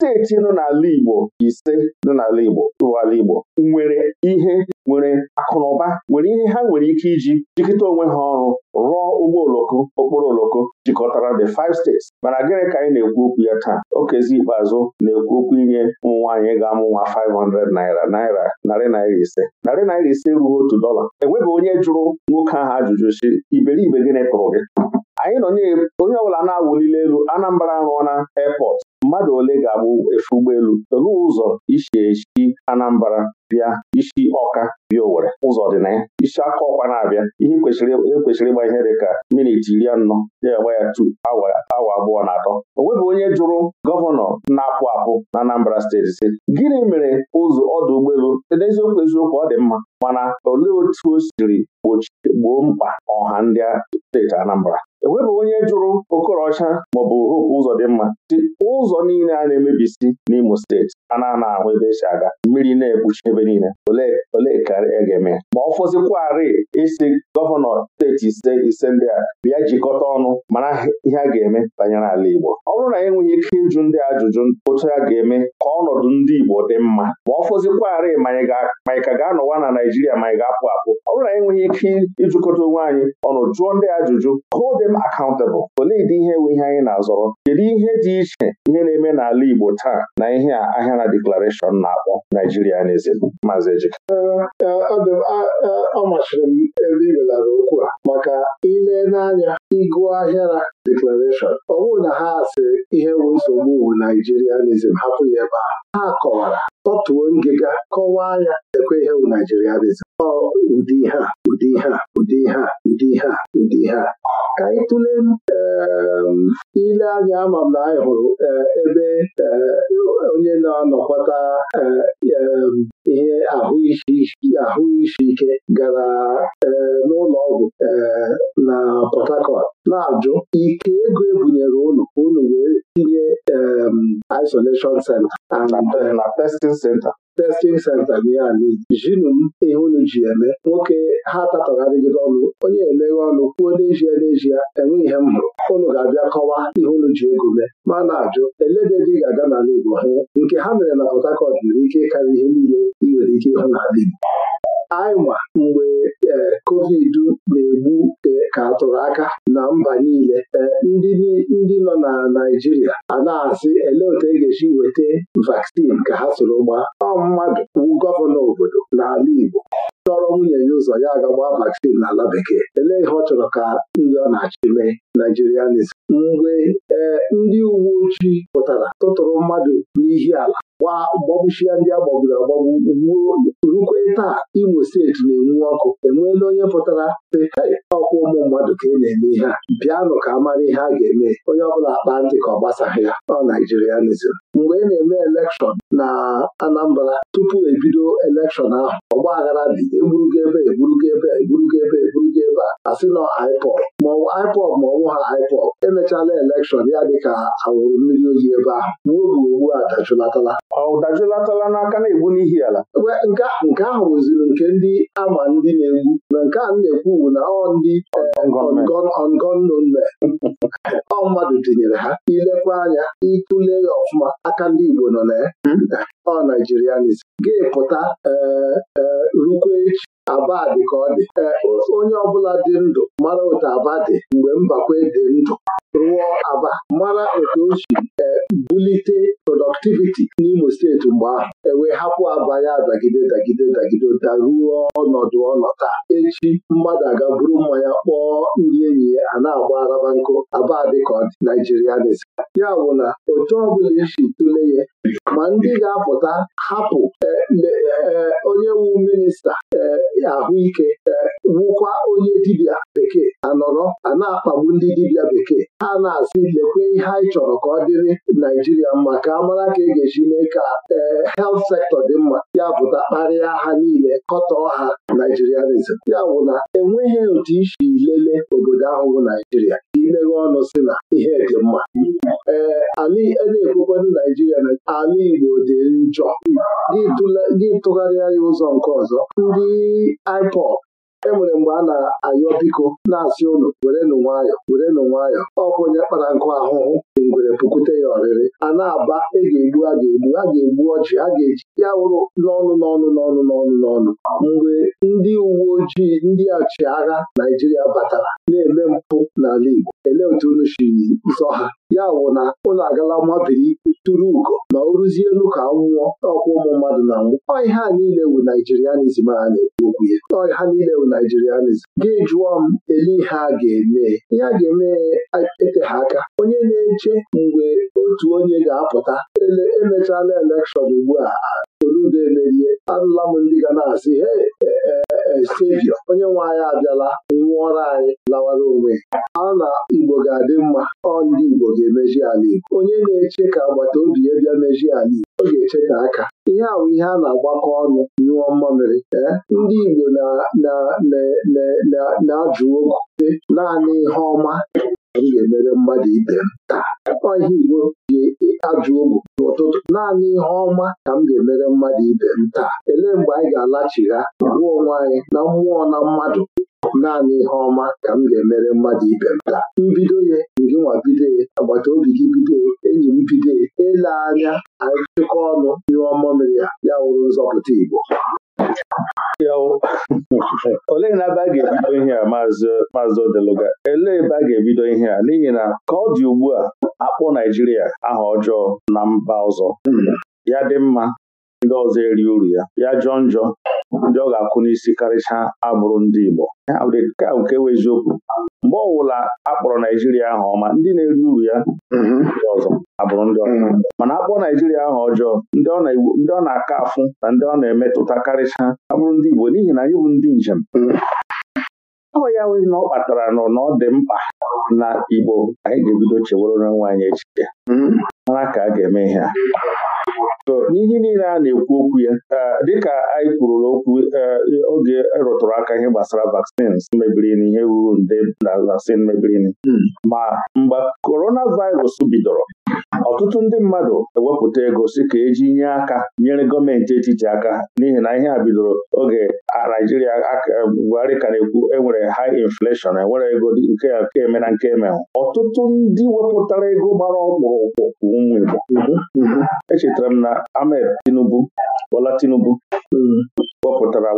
steeti nọ n'ala Igbo ise nọ n'ala Igbo ụwala Igbo nwere ihe nwere akụnụba nwere ihe ha nwere ike iji jikọta onwe ha ọrụ rụọ ụgbọ oloko okporo oloko jikọtara the five states mana gịnị ka anyị na-ekwu okwu ya taa okezi ikpeazụ na-ekwu okwu inye ụmụ nwaanyị ga-amụ nwa 500 naira naira narị naira ise narị naira ise ruo otu dọla enweghị onye jụrụ nwoke ahụ ajụjụ si iberibe gịnị tụrụ gị anyị nọ onye ọbụla na-awụlili elu Anambra rụọ na airport mmadụ ole ga-abụ efe ụgbọelu olee ụzọ isi echi Anambra bịa isi ọka bi Owere ụzọ dị na ya isi aka ọkwa na-abịa ihe kwesịrị ịgba ihe dị ka minit iri anọ ya agba ya tu awa abụọ na atọ onwebụ onye jụrụ gọvanọ na-apụ apụ na Anambra steeti si gịnị mere ụzọ ọdụ ụgbọelu n'eziokwu eziokwu ọ dị mma mana olee otu o siri gboo mkpa ọha ndị steeti Anambra enwebeghị onye jụrụ Okorocha maọbụ dị mma, si ụzọ niile a na-emebisi n'Imo steeti a na ahụ ebe esi aga mmiri na-ekpuchi ebe niile olee ka a e ga-eme ma ọ fọzikwarị isi gọvanọ steeti ise ise ndị a bịa jikọta ọnụ mara ihe a ga-eme banyere ala Igbo ọ bụrụ na e nweghị ike ịjụ ndị ajụjụ otu a ga-eme ka ọnọdụ ndị Igbo dị mma ma ọ fọzikwarị manyị ka ga-anọwa na Naijiria ma ga-apụ apụ ọ bụrụ na enweghị ike ịjụkọta onwe anyị ọnụ jụọ ndị ajụjụ hold them accountable olee dị ihe nwe ihe anyị na-azọrọ kedu ihe dị iche ihe na-eme n'ala Igbo taa na ihe ahịa Gana deklarashọn na-akpọ Naijirianism Maazị Ejike e, ọ machiri m e, e, ebe ị belara okwu a maka ile n'anya ịgụ ahịara deklarashọn, ọ bụrụ na ha asị ihe bụ nsogbu wu Naijirianism hapụ ya ebe a ha kọwara tọtuo ngịga kọwaa ya ekwe ihe bụ Naijiria dịzi ụdị ihe ụdị ihe ụdị ihe ụdị ihe ụdị ihe ka anyị tụlee ehm, ile anya ama m na anyị hụrụ eh, ebe eh, onye na anọkọta eh, ehm, ihe ahụ isi ike gara n'ụlọ ọgwụ na Port Harcourt na-ajụ ike ego ebunyere ụlọ unu wee tinye isolation center and na testing center testing center gị ya jinu m ihu unu ji eme nwoke ha tatọgharịgide ọnụ onye emeghe ọnụ kwuo n'ezie n'ezie enweghị ihe m hụrụ unu ga-abịa kọwa ihe unu ji ego mee ma na-ajụ elededị ga-aga n'ala Igbo hụ nke ha mere na Port nwere ike ịkarị ihe niile ị nwere ike ịhụ n'ala Igbo anyị mgbe e, covid na-egbu e, ka atụrụ aka na mba niile e, ndị nọ na Naijiria a na-asị ele otu e ga eji weta vaccine ka ha soro gbaa ọ mmadụ wu gọvanọ obodo n'ala Igbo chọrọ nwunye ya ụzọ ya agagba vaccine n'ala bekee elee ihe ọ chọrọ ka ndị ọ na-achị mee naijirianis mgbe ee eh, ndị uwe ojii pụtara tụtụrụ mmadụ n'ihi ala gbagbuchia ndị agbagburu agbagbu gbuo rukwe taa Imo steeti na-enwu ọkụ enweela onye pụtara sị ọkwa ụmụ mmadụ ka ị e na-eme ihe a bịanụ ka a mara ihe a ga-eme onye ọbụla akpa ntị ka ọ gbasaghị ya ọ naijirianism mgbe ị e na-eme elekshọn na Anambra tupu ebido elekshọn ahụ ọgba aghara dị egburugo ebe egburugo ebe egburugo ebe egburugo ebe a asị nọ IPOB maọbụ IPOB ma ọnwụ ha IPOB emechala elekshọn ya dịka awụrụ mmiri oyi ebe ahụ ma oge ugbu a dajụlatala ọ n'aka na-egbu n'ihi ala nke ahụ rụziri nke ndị ama ndị na-egbu na nke a na-ekwu bụ na ọ ndị eh, ongonnen mmadụ tinyere ha ilekwa anya ịtụle ya ọfụma aka ndị Igbo nọ na ọ Naijirianis ga epụta e, e, rukwe echi aba dị ka ọ dị e, onye ọbụla dị ndụ mara otu aba dị mgbe mbakwe dị ndụ rụọ aba mara otu o si e, bulite productivity n'Imo steeti mgbe ahụ ewee hapụ aba ya dagide dagide dagide daruo ọnọdụ ọnọta echi mmadụ aga buru mmanya kpọọ ndị enyi ya a na-agba araba nkụ aba dị ka ọ dị Naijiria dịzi ya bụ na otu ọbụla isi tụle ya ma ndị ga-apụta hapụ e, e, onye wu minista ahụike wụkwa onye dibịa bekee anọrọ a na-akpagbu ndị dibịa bekee ha na-asị lekwe ihe anyị chọrọ ka ọ dịrị Naijiria mma ka amara ka e ga-eji mee ka eh, helt sektọ dị mma ya pụta kparịa ha niile kọtọọ ha Naijirianism ya bụ na enweghị otu isi lele obodo ahụ bụ Naijiria ka imeghe ọnụ si na ihe dị mma ee eh, a e na-ekwekwado Naijiria na ala Igbo dị njọ gị tụgharịa ya ụzọ nke ọzọ ndị ipop enwere mgbe a na-ayọ biko na-asị ụnụ werenụ nwayọ werenụ nwayọ ọkwa onye kpara nkụ ahụhụ dị e ngwere pụkwute ya ọrịrị a na-aba a e ga-egbu a ga-egbu a ga-egbu ọchị a ga-eji ya wụrụ n'ọnụ n'ọnụ n'ọnụ n'ọnụ n'ọnụ mgbe ndị uwe ojii ndị agha Naijiria batara na-eme mpụ n'ala Igbo elee otu unu shiri zọ ha ya wụ na ụlọ agala mabiri tụrụ ugo ma o ruzie elu ka nwụọ ọkwa ụmụ mmadụ na nwụ ọ ihe a niile wu naijirianizm a na-ekwu okwu ya ọ ihe niile wu naijirianizm gị jụọ m ele ihe a ga-eme ihe a ga-eme ete ha aka onye na-eche mgbe otu onye ga-apụta emechala elekshọn ugbu a Soludo emerie anụla m ndị ga na-asị he estebio e, e, onye nwe anyị abịala nwụọrọ anyị lawara onwe a na Igbo ga-adị mma ọ ndị Igbo ga-emeji ala Igbo onye na-eche ka agbata obi ya bịa ala Igbo ọ ga-eche ka aka ihe a bụ ihe a na-agbakọ ọnụ nyụọ mmamịrị e, ndị Igbo na-ajụ okwu naanị ihe ọma m ga-emere mmadụ ibe m taa ọhịa Igbo ji ajụ ogwu n'ụtụtụ naanị ihe ọma ka m ga-emere mmadụ ibe m taa elee mgbe anyị ga-alachigha gbuo onwe anyị na mmụọ na mmadụ naanị ihe ọma ka m ga-emere mmadụ ibe m taa mbido ya ngịnwa bido ya agbata obi gị bido enyi m bido ele anya anyị chịkọ ọnụ ihe ọma mere ya ya wụrụ nzọpụta Igbo olee na ebe a ga-ebido ihe a maazị Odeluga elee ebe a ga-ebido ihe a n'ihi na ka ọ dị ugbu a akpọ Naijiria aha ọjọọ na mba ọzọ ya dị mma ndị ọzọ eri uru ya ya jọọ njọ ndị ọ ga-akwụ n'isi karịcha abụrụ ndị Igbo ka nke wee eziokwu mgbe ọwụla a kpọrọ Naijiria ahụ ọma ndị na-eri uru ya mhm. ndị ọzọ abụrụ ndị ọzọ mhm. mana akpọrọ Naijiria ahụ ọjọọ ndị ọ na-aka afụ na ndị ọ na-emetụta karịcha abụrụ ndị Igbo n'ihi na anyị bụ ndị njem mhm. ọ ya nwee na ọ kpatara nọ na ọ dị mkpa na Igbo anyị ga-ebido chewere onwe anyị echiche mara ka a ga-eme ihe a n'ihe niile a na-ekwu okwu ya dịka anyị kwuru okwu oge e rụtụrụ aka ihe gbasara vaccines mebiri ihe ruru nde na vaccine mebiri hmm. ma mgbe coronavirus bidoro ọtụtụ ndị mmadụ ewepụta ego si ka eji nye aka nyere gọọmenti etiti aka n'ihi na ihe a bidoro oge a Naijiria eh, Buhari ka na-ekwu enwere high inflation enwere ego nke nke eme na nke eme ọtụtụ ndị wepụtara ego gbara ọkpụrụkpụ ụmụ Igbo mhm, mhm. echetara m na Ahmed Tinubu Bola Tinubu mhm. wepụtara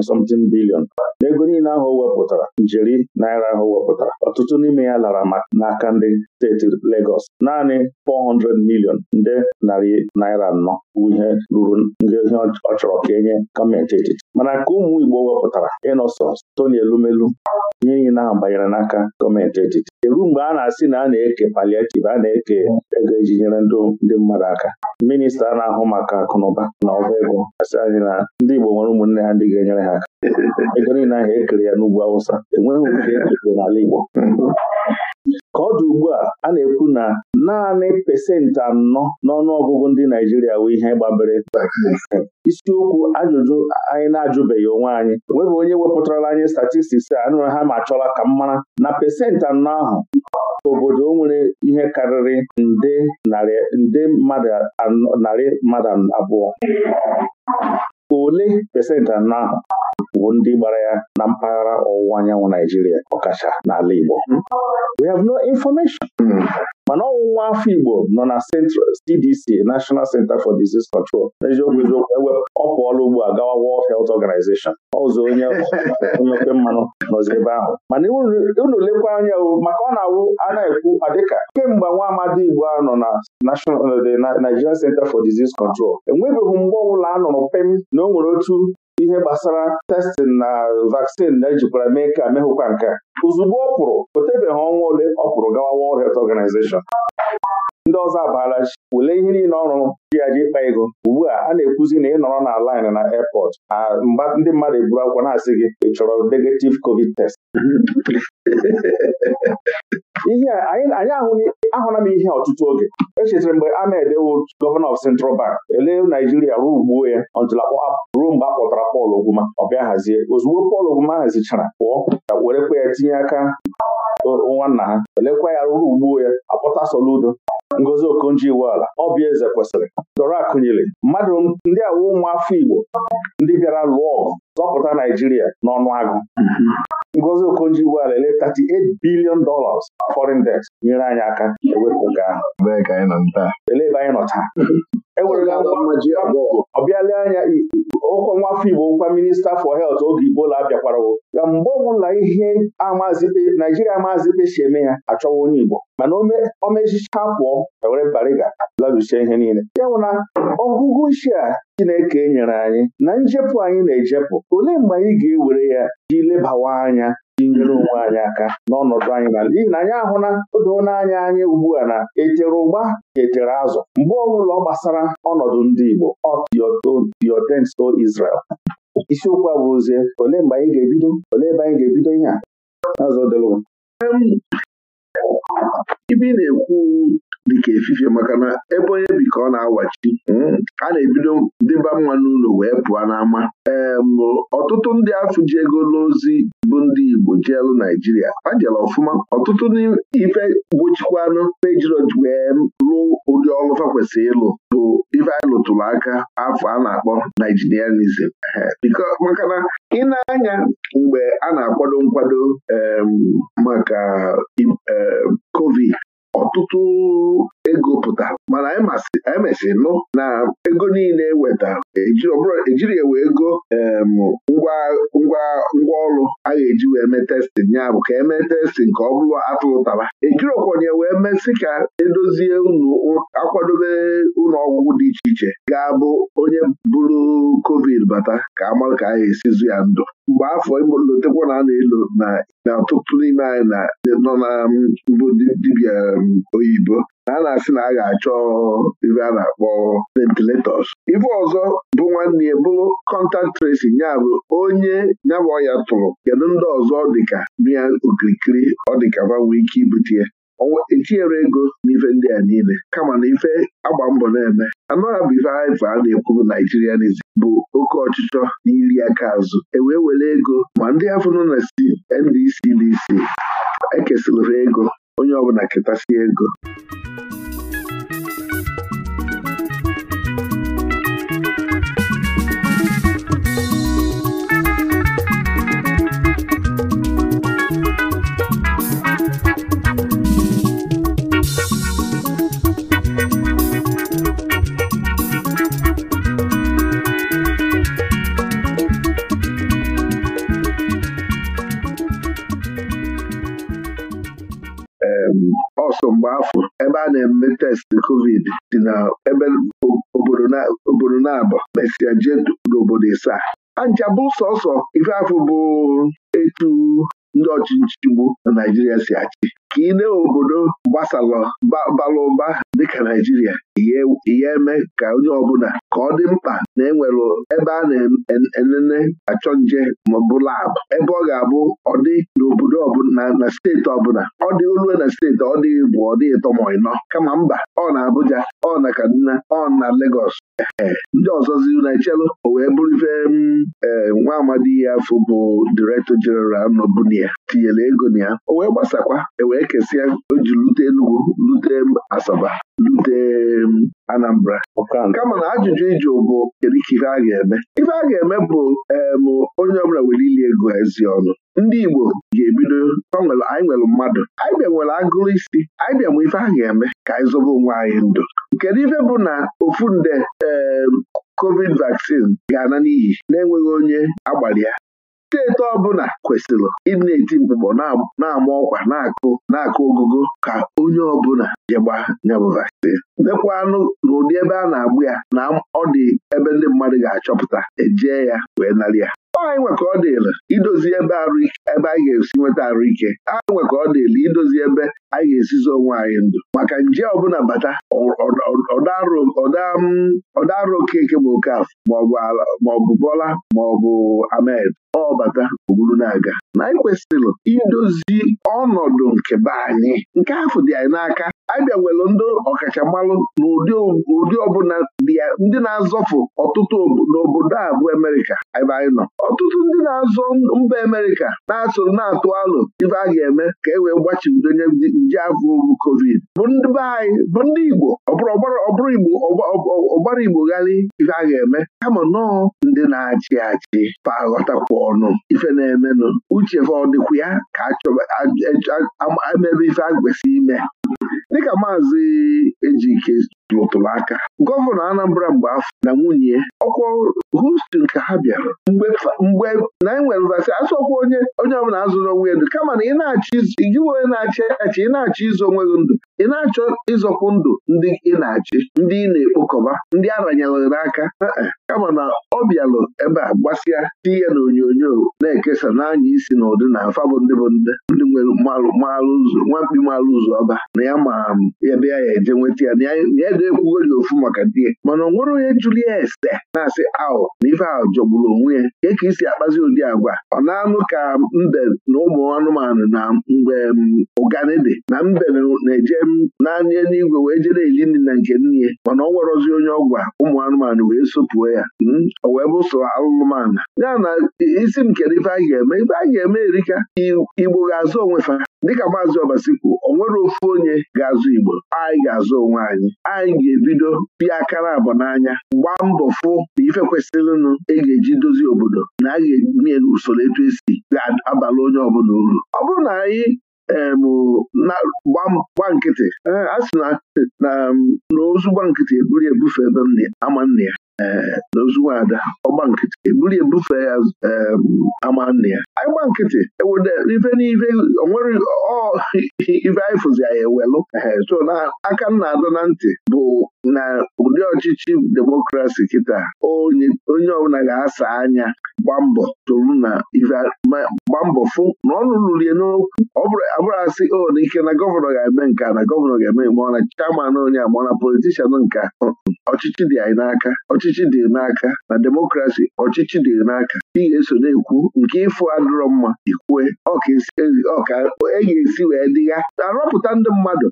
something billion n'ego niile ahụ o wepụtara njeri naira ahụ wepụtara ọtụtụ n'ime ya lara n'aka ndị steeti Legọs naanị 400 million nde narị naira anọ bụ ihe ruru ndị ihe ọ chọrọ ka enye gọọmenti etiti mana ka ụmụ Igbo wepụtara ịnọsọ Stony Elumelu ihe niile ahụ banyere n'aka gọọmenti etiti eru mgbe a na-asị na a na-eke paliativ a na-eke ego eji nyere ndị mmadụ aka minista na-ahụ maka akụnụba na ọba ego asị anyị na ndị Igbo nwere ụmụnne ha ndị ga-enyere ha aka ego niile ahụ ekere ya n'ugwu awụsa enweghị nke ekere n'ala Igbo ka ọ dị ugbu a a na-ekwu na naanị pasentị anọ n'ọnụọgụgụ ndị Naijiria bụ ihe gbabere isiokwu ajụjụ anyị na-ajụbeghị onwe anyị enweghị onye wepụtarala anyị statistiks a anụrụ ha ma chọla ka m mara na pasentị anọ ahụ obodo nwere ihe karịrị nde narị mmadụ narị mmadụ abụọ ole pesentị anọ ahụ bụ ndị gbara ya na mpaghara ọwụwa anyanwụ Naijiria ọkacha n'ala Igbo we have no information hmm. mana ọwụwa afọ Igbo nọ na CDC National Center for Disease Control n'eziokwu eziokwu ewe pụọla ugbu a gawa World Health Organization ọzọ onye oke mmanụ nọzi ebe ahụ mana unu lekwa anya maka ọ na-awụ a na-ekwu adịka kemgbe nwa amadi Igbo nọ na National Nigerian Center for Disease Control enwebeghị mgbe ọbụla a nụrụ pem na o nwere otu ihe gbasara testin na vaksin na-ejikwara mee ka mehụkwa nke ozugbo ọ pụrụ o tebeghị ọnwa ole ọ pụrụ gawa World Health Organization ndị ọzọ abaala chi wele ihe niile ọrụ ji ya ji ịkpa ego ugbu a a na-ekwuzi na ị nọrọ na lain na airport mgba ndị mmadụ eburu akwụkwọ na-asị gị ị chọrọ negative covid test ihe anyị ahụla m ihe ọtụtụ oge echetara mgbe Ahmed wod gọvanọ of Central Bank ele Naijiria ruo ugbuo ya e, ruo mgbe a kpọtara Pọl Ogwuma ọ bịa hazie ozugbo Pọl Ogwuma hazichara pụọ werekwa ya tinye aka nwanna ha elekwa ya ruru ugbuo ya e, akpọta Soludo Ngozi Okonjo-Iweala ọbịa eze kwesịrị dọrọ akụnyere mmadụ ndị awụ ụmụafọ Igbo ndị bịara lụọ ọgụ zọpụta Naijiria n'ọnụ agụ Ngozi Okonjo-Iweala ele 38 billion dollars foreign debt nyere anyị aka ewepụ nke ahụ elebe anyị nọ taa ewerela ọ bịala anya ụkọ nwafọ Igbo ụkwa minista for health oge Igbola abịakwarawo ya mgbe ọbụla ihe Naijiria amazibe si eme ya achọwa onye Igbo mana omezicha pụọ ewere bariga larusie ihe niile ya na ọgụgụ isi a Chineke nyere anyị na njepụ anyị na-ejepụ olee mgbe anyị ga-ewere ya ji lebawa anya iji nyere onwe anyị aka n'ọnọdụ anyị na n'ihi na anyị ahụla na n'anya anyị ugbu a na echere ụgba ka echere azụ mgbe ọbụla ọ gbasara ọnọdụ ndị Igbo ọtiotenso Israel isiokwu a bụrụzie ole mgbe anyị ga-ebido ole ebe anyị ga-ebido ihe a ibe ibi na-ekwu dịka efifie maka na ebe onye bi ka ọ na-awachi hmm, a na-ebido dịba mma n'ụlọ wee pụọ n'ama ee ọtụtụ ndị afụ ji ego n'ozi bụ ndị Igbo jielu Naijiria a jere ọfụma ọtụtụ ife gbochikwanụ mejirọ wee lụọ ụdị ọlụfa kwesịrị ịlụ bụ ife anyị lụtụrụ aka afọ a na-akpọ Naijirianism maka na ị na-anya mgbe a na-akwado nkwado maka COVID ọtụtụ ego pụta mana anyị nụ na ego niile weta, ejiri ewe ego ngwa ọrụ a ga-eji wee mee testin ya bụ ka emee testin ka ọ bụrụ atụrụ taba ejirokwenye wee mesị ka edozie unu akwadobe ụlọ ọgwụgwụ dị iche iche ga-abụ onye bụrụ covid bata ka amalụ ka a ga-esizu ya ndụ mgbe afọ imolotekwa na a na-elo na ọtụtụ n'ime anyị nọ na mbụ dibịa oyibo na a na-asị na a ga-achọ ibe a na-akpọ ventilators ife ọzọ bụ nwanne ya bụrụ contact tracing ya bụ onye nyabụ ya tụrụ kedu ndị ọzọ dịka ya okirikiri ọ dịka fa nwee ike ibute ya ọnwa etinyere ego n'ife ndị a niile kama na ife agba mbọ na-eme anọ ya bụ ife a na-ekwu naijirianism bụ oke ọchịchọ na iri aka azụ ewee were ego ma ndị afụnụ na si NDC DC ekesịrị ego onye ọbụla ketasie ego ọsọ mgbe afọ ebe a na-eme testị covid dị na ebe obodo na-abọ mesịa jee n'obodo ịsaa bụ sọsọ ife afọ bụ etu ndị ọchịchị bụ na Naijiria si achị ka ị obodo gbasalọ bara ụba dịka Naijiria ihe eme ka onye ọbụla ka ọ dị mkpa na enwere ebe a na-enene achọ nje maọbụ labụ ebe ọ ga-abụ ọ dị na na steeti ọbụla ọ dị olue na steeti ọ dị bụ ọ dịghị ịtọ ịnọ kama mba ọ na Abuja ọ na Kaduna ọ na Lagos ndị ọzọzi na-echelu o wee bụrụ ife mm, eh, nwa amadi ya afọ bụ direktọ jeneral ya tinyere ego na ya o wee gbasakwa e wee kesịa o ji lute Enugu lute Asaba lute mm, Anambra kama na ajụjụ iji bụ kedu ife a ga-eme ife a ga-eme bụ em onye ọbụla nwere ili ego ezi ọnụ ndị Igbo ga-ebido anyị nwere mmadụ anyị bịa nwere agụrụ isi anyị bịa ife a ga-eme ka anyị zobe onwe anyị ndụ kedu ife bụ na ofu nde covid vaccine ga-ana n'iyi na-enweghị onye agbara ya steeti ọbụla kwesịrị ịna-eti mkpụkpọ na-ama ọkwa na-akụ na ogogo ka onye ọbụla jegba nyabụ anụ mekwanụ n'ụdị ebe a na agbụ ya na ọ dị ebe ndị mmadụ ga-achọpụta ejee ya wee narị ya anyị nwe ka ọ dịla idozi ebe ebe anyị ga-esi nweta ike. anyị nweka ka ọ dịla idozi ebe anyị ga-esizi onwe anyị ndụ maka nje ọbụla bata arụ okeke ma okafọ maọbụ bọla maọbụ amed ọ bata ogburu na-aga na anyị kwesịrị idozi ọnọdụ nke be anyị nke afọ dị anyị n'aka abịa nwere ndị ọkachamalụ na ụdị ọbụla dị ya ndị na-azọfụ ọtụtụ n'obodo a bụ emerika. ebe anyị nọ ọtụtụ ndị na-azọ mba emerika na-atụ na-atụ alụ ife a ga-eme ka e wee gbachibido onye nje afọ bụ covid bụ ndị be anyị bụ ndị Igbo ọbụrụ Igbo ọgbara Igbo ghalị ife a ga-eme kama nọọ ndị na-achị achị fa ọnụ ife na-emenụ uche ọ dịkwa ya ka achọba amebe ife a ime dịka maazị Ejike lụtụrụ aka gọvanọ Anambra mgbe afọ na nwunye ọkwọ Houston ka ha bịara mgbe na enwere vasị asọkwa onye onye ọbụla azụrụ onwe ya ndụ kama na ị na-achị gị onye na-achị achị ị na izu onwe gị ndụ ị na-achọ ịzọkwu ndụ ndị ị na-achị ndị ị na-ekpokọba ndị a n'aka kama na ọ bịalụ ebe a gbasịa ti ya na onyonyo na-ekesa n'anya isi na ụdị na afabụ ndị bụ ndị ndị nwere maalụ ụzọ nwamkpi maalụ ụzọ ọba na ya ma ya ya eje nweta ya na ya deekwughori ofu maka di ya mana ọ nwere onye jụrụ ya ese na-asị ahụ na ife ahụ jọgburu onwe ya nke ka isi akpazi ụdị agwa ọ na-anụ ka mbe na ụmụ anụmanụ na mgbe ụgani dị na mbe na-eje naanị n'igwe wee jere eli nri na nke nne mana ọ nwerozi onye ọgwa ụmụ anụmanụ wee sụpụo ya ọ hmm? wee bụso alụmanụ ya na isi m kere ife a ga-eme ife a ga-eme erika igbo ga-azụ fa. dịka maazị ọbasi kwuo o nwere ofu onye ga-azụ igbo anyị ga-azụ onwe anyị anyị ga-ebido pịa aka na abụ n'anya gbaa mbọ fụ na ife kwesịrịnụ ị e ga-eji dozie obodo na a ga-enye usoro etu esi ga-abalị onye ọbụla uru ọ bụrụ na anyị Um, gba nkịtị eh, a sị na gba nkịtị eburu ebufe ebe m ama nna ya eh, nwa ada ọgba nkịtị ebuli ebufe ya ama nne ya anyị gba nkịtị e ife n'ife onwere ife anyị fụzi anyị ewelụ so na aka nna adọ na ntị bụ na ụdị ọchịchị demokrasi kịta onye ọbụla ga-asa anya gba mbọ tụrụ na ife fụ na ọnụ lulie n'okwu ọ bụrụ o na ike na gọvanọ ga-eme nka na gọvanọ ga-eme ma na chairman onye ma ọ na politishan nka ọchịchị dị anyị n'aka ọchịchị dị n'aka na demokrasi ọchịchị dị n'aka ị ga-eso na-ekwu nke ịfụ adịrọ mma ikwue ọka e ga-esi wee dịgha arọpụta ndị mmadụ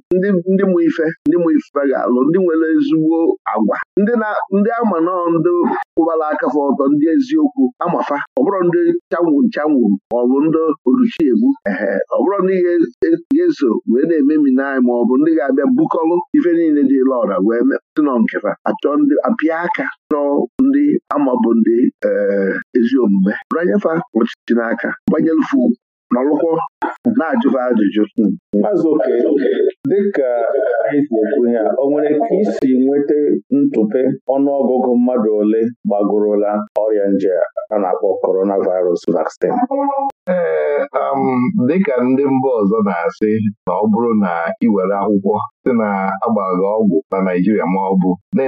ndị mụ ife ndị mụ ife ga-alụ ndị nwere ezigbo agwa ndị ama nọọ ndị kwụbara aka fa ọtọ ndị eziokwu amafa ọ bụrụ ndị chanwụ nchanwụ ma ọ bụ ndị oruchiegbu ehe ọ bụrụ ndị ga-eso wee na-ememi n'anyị ma ọ bụ ndị ga-abịa bukọlụ ife niile dị ọra wee Ndị nọ nketa achọ ndị apịa aka chọọ ndị amabụ ndị eh, ezi omume bụrụ anyefa ọchịchị n'aka gbanyelufu. nọlụkwọ na-ajụba ajụjụ azụ oke dịka anyị na-ekwu ya o nwere ka isi nweta ntụpe ọnụọgụgụ mmadụ ole gbagorola ọrịa nje a na-akpọ coronavirus vaccine ee um, dịka ndị mba ọzọ na-asị na ọ bụrụ na iwere akwụkwọ site na agbaghị ọgwụ na Naijiria ma ọ bụ na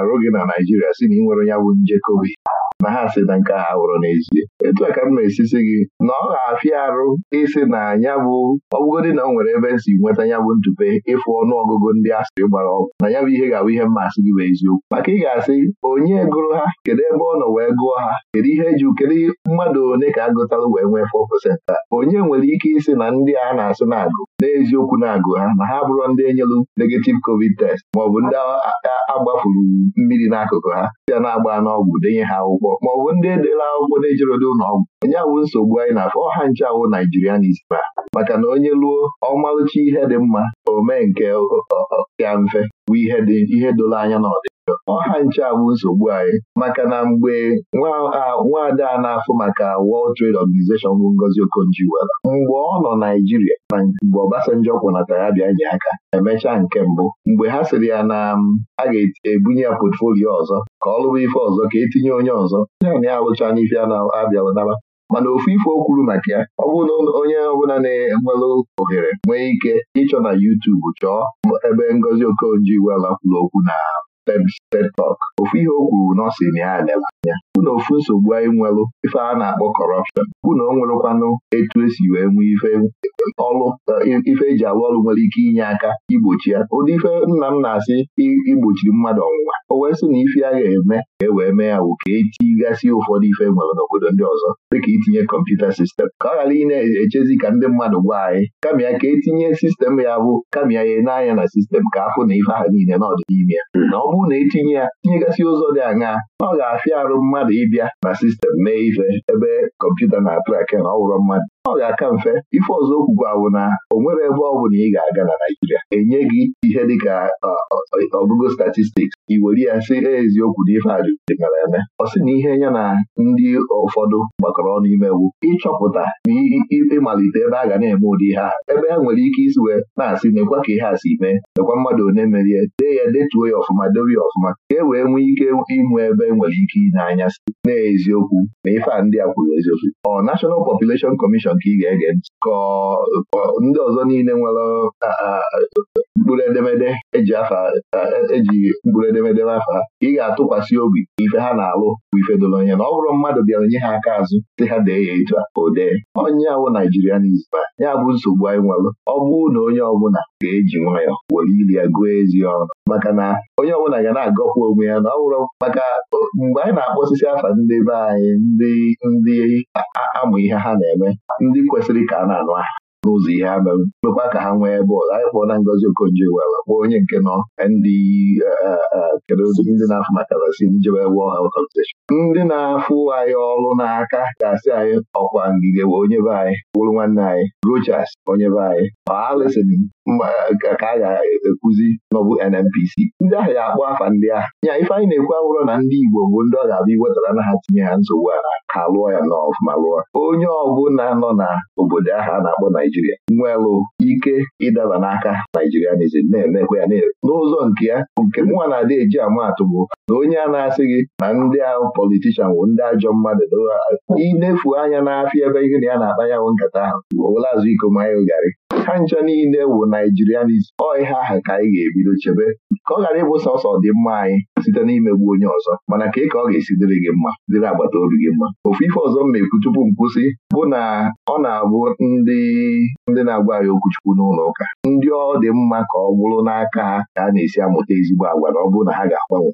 arụ gị na Naijiria si na ị nwere onye bụ nje covid na ha sị na nke ha wụrụ n'ezie etu ka m na-esisi gị na ọ ga-afịa arụ ịsị na ya bụ ọbụgodị na ọ nwere ebe si nweta ya bụ ntụpe ịfụ ọnụ ọgụgụ ndị asịrị gbara ọgwụ na ya bụ ihe ga-abụ ihe mmasị gị bụ eziokwu maka ị ga-asị onye gụrụ ha kedu ebe ọ nọ wee gụọ ha kedu ihe eji kedu mmadụ ole ka agụtalụ wee nwee fọ 4% onye nwere ike ịsị na ndị a na-asị na-agụ n'eziokwu na-agụ ha na ha bụrụ ndị enyelu negative covid test maọbụ ndị agbafuru mmiri n'akụkụ ha site na-agba n'ọgwụ denye ha akwụkwọ Ma ọ bụ ndị edela akwụkwọ na dị ụlọ ọgwụ onye awụ nsogbu anyị na-afọ ọha nche Naijiria naijirianism maka na onye luo ọmalụcha ihe dị mma o mee nke ya mfe bụ ihe doro anya na ọdịda ọha nche abụ nsogbu anyị maka na mgbe nwaada a na-afụ maka World Trade Organization bụ Ngozi Okonjo-Iweala mgbe ọ nọ Naijiria na mgbe Obasanjo kwụnatara ya bịa nye aka emechaa nke mbụ mgbe ha sịrị ya na a ga-ebunye ya potfolio ọzọ ka ọ lụba ife ọzọ ka etinye onye ọzọ ya na ya alụcha n'ife a na-abịalụ naba mana ofu ife o kwuru maka ya ọ bụrụ na onye ọbụla na-enwere ohere nwee ike ịchọ na YouTube chọọ ebe Ngozi okonji iweala kwuru okwu na TED ofu ihe o kwuru n'ọsịn na ya adịla anya bụ na ofu nsogbu anyị nwelụ ife a na-akpọ kọrọpshọn bụ na o nwerekwanụ etu esi wee nwee ife ọlụ eh, ife eji alụ ọlụ nwere ike inye aka igbochi ya ụdị ife nna m na-asị igbochi mmadụ ọnwụnwa o wee sị na ife ya ga-eme ka e wee mee ya wụ ka etigasị ụfọdụ ife e nwere n'obodo ndị ọzọ dịka itinye kọmputa sistem ka ọ ghara ị na-echezi ka ndị mmadụ gwa anyị kama ya ka etinye sistem ya bụ kama ya nye n'anya na sistem ka afụ na ife ahụ niile n'ọdịnihu ya hmm. na ọ bụrụ ọwụ na etinye ya nyegasị ụzọ dị anya ọ ga-afịa arụ mmadụ ịbịa na sistem mee ife ebe kọmputa na-atụrake na ọ mmadụ ọ ga-aka mfe ife ọzọ okwu awụ na o nwere ebe ọ na ị ga-aga na Naijiria enye gị ihe dịka ọgụgụ statistiks i were ya sị eziokwu na ife ajụjụdịnara eme ọ sị na ihe ya na ndị ụfọdụ gbakọrọ ọnụ imewu ịchọpụta na ịmalite ebe a ga na-eme ụdị ihe a ebe ha nwere ike isi wee na-asị nekwa ka ihe a si mee nekwa mmadụ one merie dee ya detuo ya ọfụma na-edobe ya ọfụma ka e wee nwee ike inwe ebe e nwere ike ile anya site n'eziokwu na ife a ndị a kwuru eziokwu ọ National Population Commission ka ị ga-ege ntị ka ndị ọzọ niile nwere mkpụrụ edemede eji e mkpụrụ edemede afọ ha ị ga-atụkwasị obi ife ha na-alụ bụ ife doro anya na ọ bụrụ mmadụ bịara nye ha aka azụ si ha dee ya etu a o onye awụ Naijiria n'izba ya bụ nsogbu anyị nwelụ ọ bụụ na onye ọbụla ga-eji nwayọọ were ili ya gụọ ezi ọrụ maka na onye ọbụla ga na-agọpụ onwe ya na ọ bụrụ maka mgbe anyị na-akpọ osisi afa ndị be anyị ndị ndị amụ ihe ha na-eme ndị kwesịrị ka a na-anụ aha n'ụzọ ihe ha merụ mekwa ka ha nwee bọọlụ anyị kpọọ na Ngozi Okonjo Iweala kpọọ onye nke nọ eh, eh, eh, ndị kedu ndị na-afụ maka rasi njebe World Health Organization ndị na-afụ anyị ọrụ n'aka gasị anyị ọkwa ngige wee onye be anyị bụrụ nwanne anyị Rochas onye be anyị Allison ka a ga-ekuzi n'ọbụ NNPC ndị ahụ ga-akpọ afa ndị ahụ nya ife anyị na-ekwu abụrụ na ndị Igbo bụ ndị ọ ga-abịa iwetara na ha tinye ya nsogbu a ha lụọ ya n'ọfụma lụọ onye ọbụla nọ n'obodo ahụ a na-akpọ Naijiria nwelụ ike ịdaba n'aka Naijirianizm na-emekwa ya n'ụzọ nke ya nke mụnwa na-adị eji amaatụ bụ na onye a na-asị gị na ndị ahụ politishan bụ ndị ajọ mmadụ ịnefu anya n'afịa ebe ihe na ya na-akpa bụ nkata ahụ azụ iko garị ha nile niile bụ naijirianis ọ ihe aha ka anyị ga-ebido chebe ka ọ ghara ịbụ sọsọ dị mma anyị site n'imegbu onye ọzọ mana ka ka ọ ga-esi dịrị gị mma dịrị agbata obi gị mma ofu ife ọzọ m na-ekwu tupu m kwụsị bụ na ọ na-abụ ndị ndị na-agwa anyị okwuchukwu n'ụlọ ụka ndị ọ dị mma ka ọ bụrụ n'aka ha ka a na-esi amụta ezigbo agwa na ọ bụrụ na ha ga-agbanwe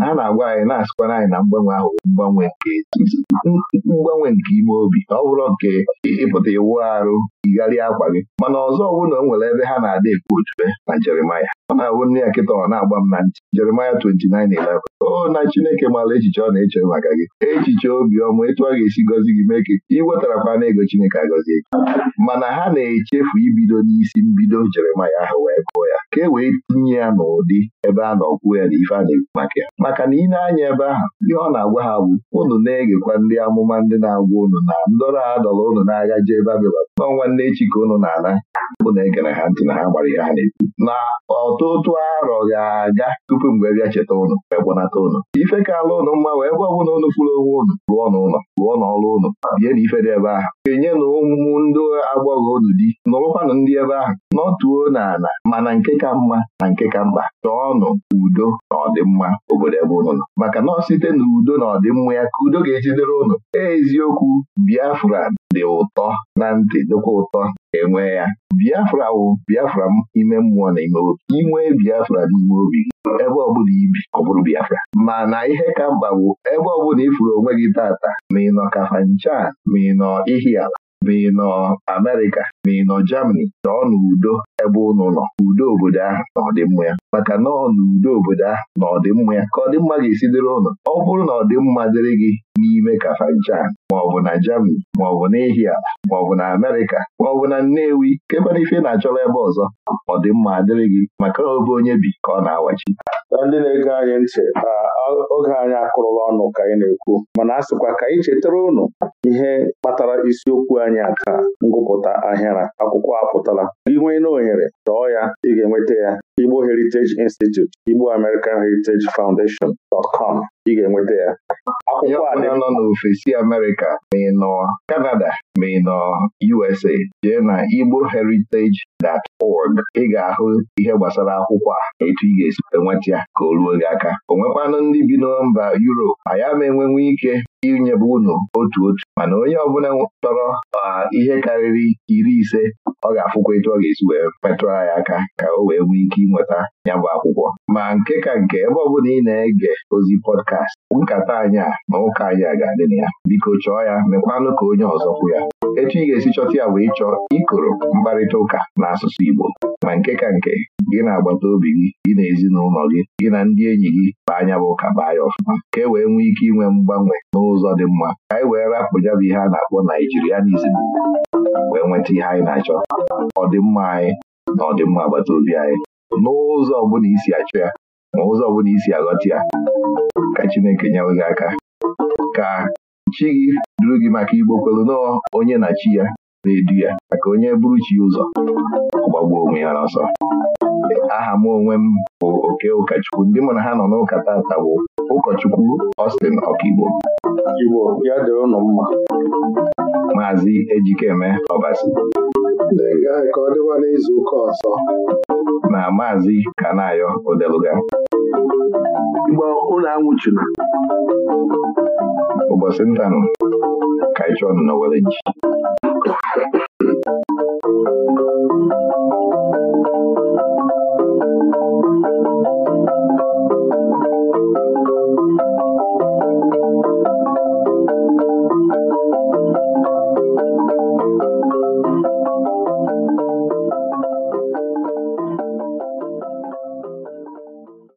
ha na-agwa anyị na-asịkwara anyị na mgbanwe ahụ mgbanwe nke mgbanwe nke ime obi ọ bụrụ nke ịpụta iwu arụ yigharịa akwa gị mana ọzọ na o nwere ebe ha na-ada ekwu ojube na Jeremaya ọ na ahụ nne ya kita ọ na-agba m na ntị Jeremaya 29:11 o na Chineke maara echiche ọ na-eche maka gị echiche obiọma etu ọ ga-esi gọzi gị mee ka iwetarakwa na ego Chineke agọzie gị mana ha na-echefu ibido n'isi mbido Jeremaya ahụ wee kụọ ya ka e wee tinye ya n'ụdị ebe a na-ọkwụ ya na ife a na-ekwu maka ya maka na ị na-anya ebe ahụ ihe ọ na-agwa ha bụ ụnụ na-egekwa ndị amụma ndị na-agwa ụnụ na ndọrọ adọrọ ụnụ na-aga jee Babilọn n'ọnwa nne chike ụnụ na-ana unu na-egere ha ntị na ha gbara ihe ha na-ekwu na ọt ọtụ otu arọ ga-aga tupu mgbe bịa cheta ụnụ ekpọnata ụnụ ife ka ụnụ mma wee ebe ọbụla ụnụ fụrụ onwe ụnụ lụọ n'ụlọ lụọ n'ọrụ ụnụ bie na ife dị ebe ahụ enye na ụmụ ndị agbọghọ ụnụ di nọrụkwanụ ndị ebe ahụ nọtuo n'ala mana nke ka mma na nke ka mkpa chọọnụ udo na ọdịmma obodo ebe ụnụ nọ maka na ọ site na udo na ọdịmma ya ka udo ga-ejidere ụnụ eziokwu Biafra dị ụtọ na ntị dịkwa ụtọ enwe ya biafra wụ biafra m ime mmụọ na ime obi biafra n'ime obi ebe ọbụla ibi ọ bụrụ biafra mana ihe ka mkpa bụ ebe ọbụla ịfụrụ onwe gị tata ma ị nọ kafancha ma ị nọ ihiala ma ị nọ Amerịka ma nọ Germany nọọ n'udo ebe ụnụ nọ udo obodo ahụ na ọdịmma ya maka nọọ n'udo obodo ahụ na ọdịmma ya ka ọdịmma ga-esi dịrị ụnụ ọ bụrụ na ọdịmma dịrị gị n'ime Kafanchan maọbụ na Germany maọbụ na Ihia maọbụ na Amerịka maọbụ na Nnewi kekwana ife na-achọrọ ebe ọzọ ọdịmma dịrị gị maka obe onye bi ka ọ na-awachi na ndị na-ege anyị ntị oge anyị akụrụla ọnụ ka anyị na-ekwu mana a sịkwa ka anyị chetara ụnụ ihe kpatara isiokwu anyị ngụpụta ahịa ya na akwụkwọ apụtala nwee na ohere chọọ ya ị ga-enweta ya Igbo Heritage Institute Igbo American Heritage Foundation dot com ị ga-enweta ya akwụkwọ nọ n'ofesi Amerịka ma ị nọ Canada ma ị USA jee na igboheritage.org ị ga-ahụ ihe gbasara akwụkwọ a etu ị ga-esi enweta ya ka o ruo gị aka o ndị bi na mba Europe ya ama enwenwe ike inyebe unu otu otu mana onye ọbụla chọrọ uh, ihe karịrị iri ise ọ ga-afụkwa etu ọ ga-esi wee metụrụ ya aka ka o wee nwee ike ịnweta ya bụ akwụkwọ ma nke ka nke ebe ọ bụla ị na-ege ozi pọdkast nkata anyị a na ụka anyị a ga-adị na ya biko chọọ ya mekwanụ ka onye ọzọ kwụ ya etu ị ga-esi chọta ya bụ ịchọ ikoro mkparịta ụka asụsụ Igbo ma nke ka nke gị na agbata obi gị gị na ezinụlọ gị gị na ndị enyi gị bụ anya bụ ka baa ya ọfụma ka e wee nwee ike inwe mgbanwe n'ụzọ dị mma ka anyị e wee rapụ ya bụ ihe a na-akpọ naijirianizm wee nweta ihe anyị na-achọ ọdịmma anyị na ọdịmma agbata obi anyị n'ụzọ ọbụla isi achọ ya ma ụzọ ọbụla isi aghọta ya ka Chineke nyewe gị aka ka chi gị duru gị maka Igbo kwelu nọọ onye na chi ya na-edu ya maka onye buru chi ụzọ gbagbuo onwe ya n'ọsọ aha m onwe m bụ oke ụkọchukwu ndị mụ na ha nọ n'ụka ụkọchukwu Austin Ọkigbo Igbo ya dịrị ụnụ mma Maazị Ejikeme Ọbasi ka ọ dịwa n'izu ụka ọzọ na Maazị Kanayo Odeluga Igbo ụlọ ụbọchị ndanụ ka ịchọ nọ na were ji